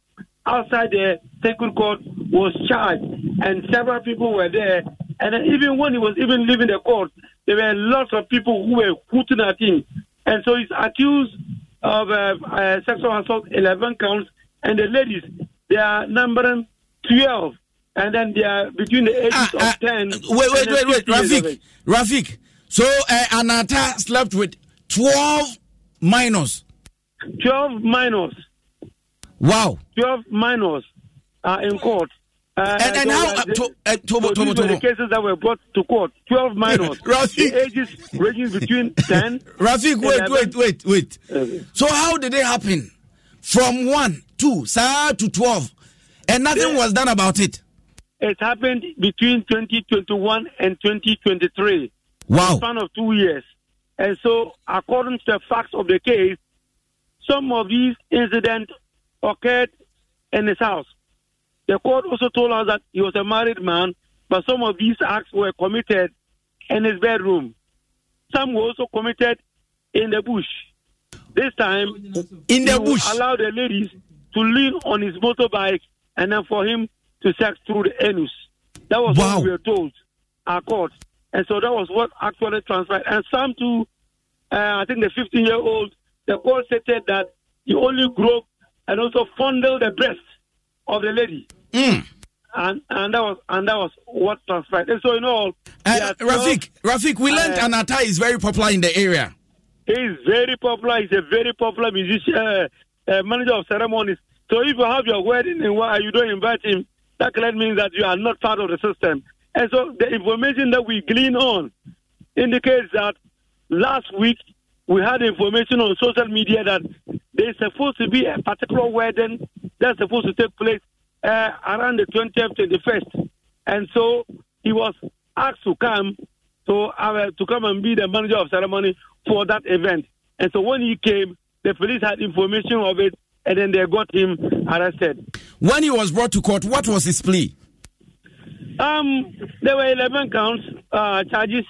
outside the sacred court was charged, and several people were there. And even when he was even leaving the court, there were lots of people who were hooting at him. And so he's accused of uh, uh, sexual assault, 11 counts, and the ladies, they are numbering 12 and then they are between the ah, ages ah, of ah, 10. Wait, wait, wait, wait, Rafik. Rafik. So uh, Anata slept with 12 minors. 12 minors. Wow. 12 minors are in court. Uh, and, and how? Uh, to, uh, so the cases that were brought to court. 12 minors. Rafik. The ages ranging between 10. Rafik, wait, wait, wait, wait, wait. So how did it happen? From 1, 2, sir, to 12. And nothing was done about it. It happened between 2021 and 2023. Wow. span of two years. And so, according to the facts of the case, some of these incidents occurred in his house. The court also told us that he was a married man, but some of these acts were committed in his bedroom. Some were also committed in the bush. This time, in the bush, allowed the ladies to lean on his motorbike, and then for him to sex through the anus. That was wow. what we were told, our court. And so that was what actually transpired. And some to, uh, I think the 15 year old, the court stated that you only grope and also fondle the breast of the lady. Mm. And, and that was and that was what transpired. And so in all, uh, Rafik, Rafik, we learned uh, Anata is very popular in the area. He's very popular. He's a very popular musician, uh, uh, manager of ceremonies. So if you have your wedding and you don't invite him, that clearly means that you are not part of the system. And so the information that we glean on indicates that last week we had information on social media that there's supposed to be a particular wedding that's supposed to take place uh, around the 20th, 21st. And so he was asked to come to, uh, to come and be the manager of ceremony for that event. And so when he came, the police had information of it, and then they got him arrested. When he was brought to court, what was his plea? Um, there were 11 counts, uh, charges.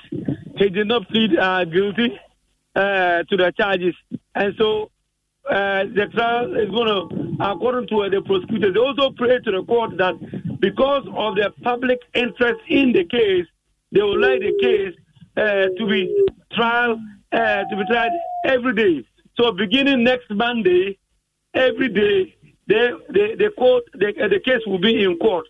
He did not plead uh, guilty uh, to the charges. And so uh, the trial is going to, according to the prosecutors, they also pray to the court that because of the public interest in the case, they would like the case uh, to be trial uh, to be tried every day. So beginning next Monday, every day the the the court the, uh, the case will be in court.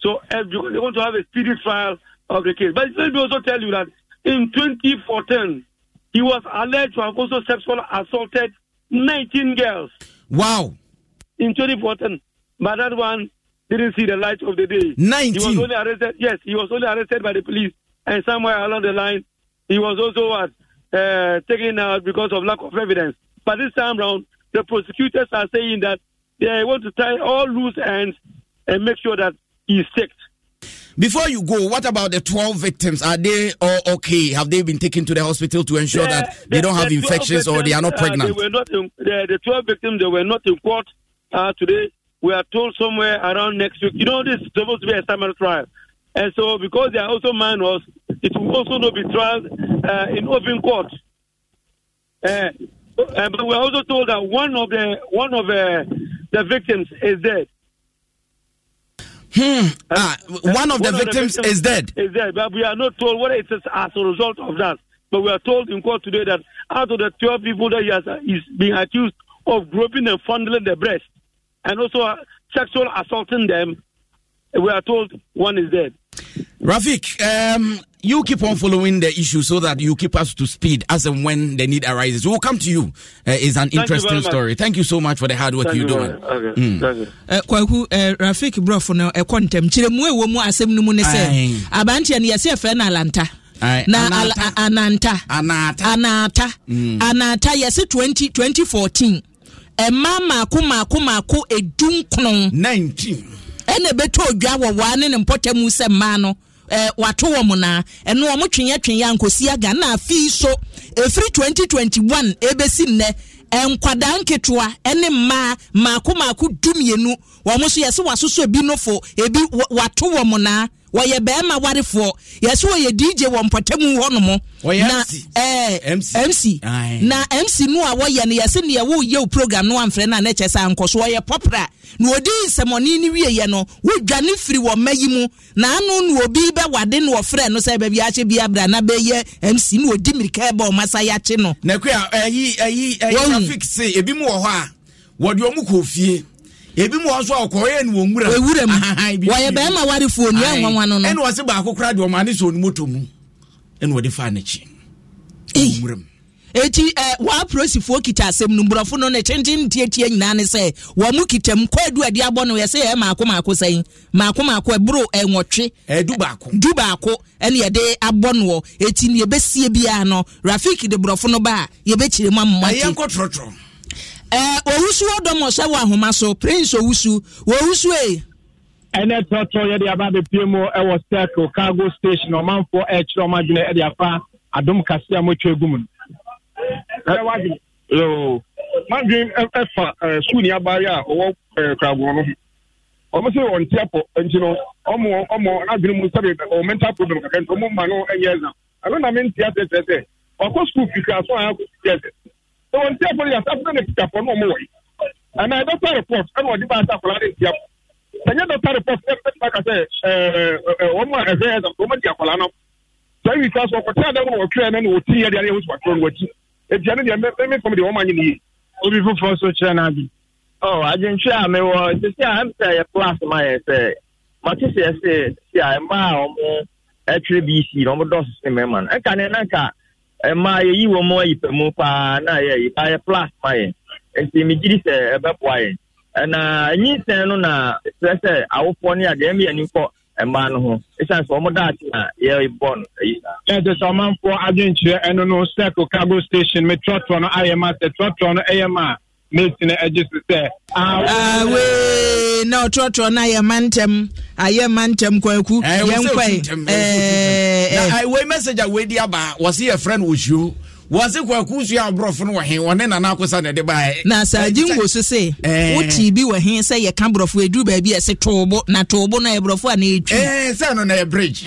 So they want to have a speedy trial of the case. But let me also tell you that in 2014, he was alleged to have also sexually assaulted 19 girls. Wow. In 2014, but that one didn't see the light of the day. 19. He was only arrested. Yes, he was only arrested by the police, and somewhere along the line, he was also what, uh, taken out because of lack of evidence. But this time round, the prosecutors are saying that yeah, I want to tie all loose ends and make sure that he's safe. Before you go, what about the 12 victims? Are they all okay? Have they been taken to the hospital to ensure the, that they the, don't have the infections victims, or they are not pregnant? Uh, they were not in, the, 12 victims, they were not in court uh, today. We are told somewhere around next week. You know, this is supposed to be a summer trial. And so, because they are also minors, it will also not be tried uh, in open court. Uh, uh, but we are also told that one of the one of the uh, the victims is dead. Hmm. Ah, one of the one victims, of the victims is dead. Is dead, but we are not told whether it is as a result of that. But we are told in court today that out of the 12 people that he has, is uh, being accused of groping and fondling their breast and also uh, sexual assaulting them, we are told one is dead. Rafik, um, you keep on following the issue so that you keep us to speed as and when the need arises. We'll come to you. Uh, it's an Thank interesting story. Thank you so much for the hard work Thank you're doing. Okay. Mm. Thank you. Uh, kwaku uh, Rafik Brofo no ɛkɔntɛm uh, kyerɛmu ɛwɔ mu asɛm no mu ne sɛ abanteɛ no yɛsɛ ɛfɛ no alanta na ananta anata anata hmm. yɛse 20 2014 ɛma maako maako maako edu nkron 19 ɛna ɛbɛtɔ odwa wɔ waa ne ne mpɔtɛ mu sɛ mmaa no eh, wato wɔn na ɛno wɔn twenyɛ twenyɛ nkosi aga na afei so efiri twenty twenty one ebesi nnɛ nkwadaa nketewa ne mmaa mmaako mmaako du mmienu wɔn nso yɛsɛ wasoso ebi nofo ebi wato wɔn na wɔyɛ bɛrima warefoɔ yɛsɛ wɔyɛ dj wɔ mpɔtamu hɔnom na mc na mc no a wɔyɛ no yɛsɛ neɛ woyɛ wo program no amfrɛ no a na kyɛ sɛ ankɔ so wɔyɛ pɔpra na ɔdi nsɛmɔne no wieyɛ no wodwane firi wɔ mma yi mu na ano na obi bɛwade na wɔfrɛ no sɛ baabi akye bi na bɛyɛ mc na ɔdi mirika ɛbɛ ɔma sa yɛakye no nakoa ayi ayi ayi traffic se ebi mu wɔ hɔ a wɔde ɔmo kɔ fie ebi mu wɔn so a ɔkɔɔyɛ ni wɔn wura ewura mu wɔyɛ bɛrima warefoɔ ni ɛnwa wa no no ɛna wɔsi baako kura deɛ ɔmo ani sɛ onimu to mu ɛna wɔde fa n'akyi wɔn wura mu eti ɛ wɔn apolisifoɔ kita asɛm no mborɔfo no ne tenten tietie nyinaa ne sɛ wɔn mu kita mu kɔɔdu ɛdi abɔ no yɛsɛ yɛ maako maako sɛn maako maako ɛboro ɛnwɔtwe ɛdu baako du baako ɛna yɛde abɔ no eti ne yɛbɛsie biara no rafik de borɔfo no ba a yɛbɛkyerɛ mu amumate ɛyɛ nkɔ trɔtrɔ owusu ɔdɔmɔ sɛ wɔ ahoma so prince owusu owusu e. ɛnɛ tɔtɔ yɛde aba abɛpie mu ɛwɔ circle cargo station ɔmanfoɔ ɛkyerɛ ɔmo adwene ɛde afa adom kasi a motwa egu mu a no ti nti no mu mental problem ma no na mi wɔn ntiafo no yɛasafo no ne tikafo no ɔmo wɔ yi anaa dɔkta report ɛna wɔde ba asa akwadaa ne ntiafo sɛnyɛ dɔkta report ɛ ɛ ba ka sɛ ɛɛ ɛ wɔn a ɛhwɛ yɛ dɔm wɔn di akwadaa no saa yi saa so ɔkɔtɛ adan wɔn wɔtwerɛ na wɔti yɛ deɛ ɛyɛ wɔsi wɔtwerɛ no wɔkyi etia ne deɛ mɛ mɛ fam deɛ wɔn anyi ne yie. obi foforɔ so kyerɛ na bi. ɔ adwentwe a mewɔ sisi a ɛmsɛ yɛ class ma yɛ sɛ mate sɛ ɛsɛ sisi a mmaa a wɔn ɛtwerɛ bc na wɔn dɔɔso mmaa yi wɔn mu ayi pɛ mu paa na yɛyi paa yɛ plas ma yɛn nti megye di sɛ ɛbɛboa yɛn ɛna no na kyerɛ sɛ awofoɔ no adeɛ mi ani kɔ mmaa no ho ɛsiane sɛ wɔn daate na yɛbɔ no ayi na yɛsɛ sɛ ɔmanfoɔ adwenkyerɛ ɛno no sɛko cargo station me trɔtrɔ no ayɛ ma sɛ trɔtrɔ no ɛyɛ ma milton agye so sɛ na ɔtrɔtrɔ no ayɛ ma ntɛm ayɛ ma ntɛm kwaku yɛnkɔe message a weidi aba wɔse yɛfrɛ no ɔsuo wɔse kwaku sua aborɔfo no wɔ he wɔne nana akosa na baɛ eh. na saa eh, gye ngo eh. so sɛ wotii bi wɔ he sɛ yɛka borɔfo aduru baabi ɛse toobo na toobo no ɛborɔfo a na ɛtwi sɛ no na ɛyɛ bridge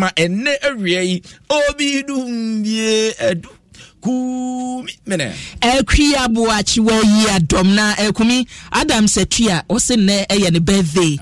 ma ɛnɛ awia yi obi dum bie kumi mene ɛkwi aboakyewa yi adɔm na ɛkumi adam satua ɔse nnɛ ɛyɛ ne birthday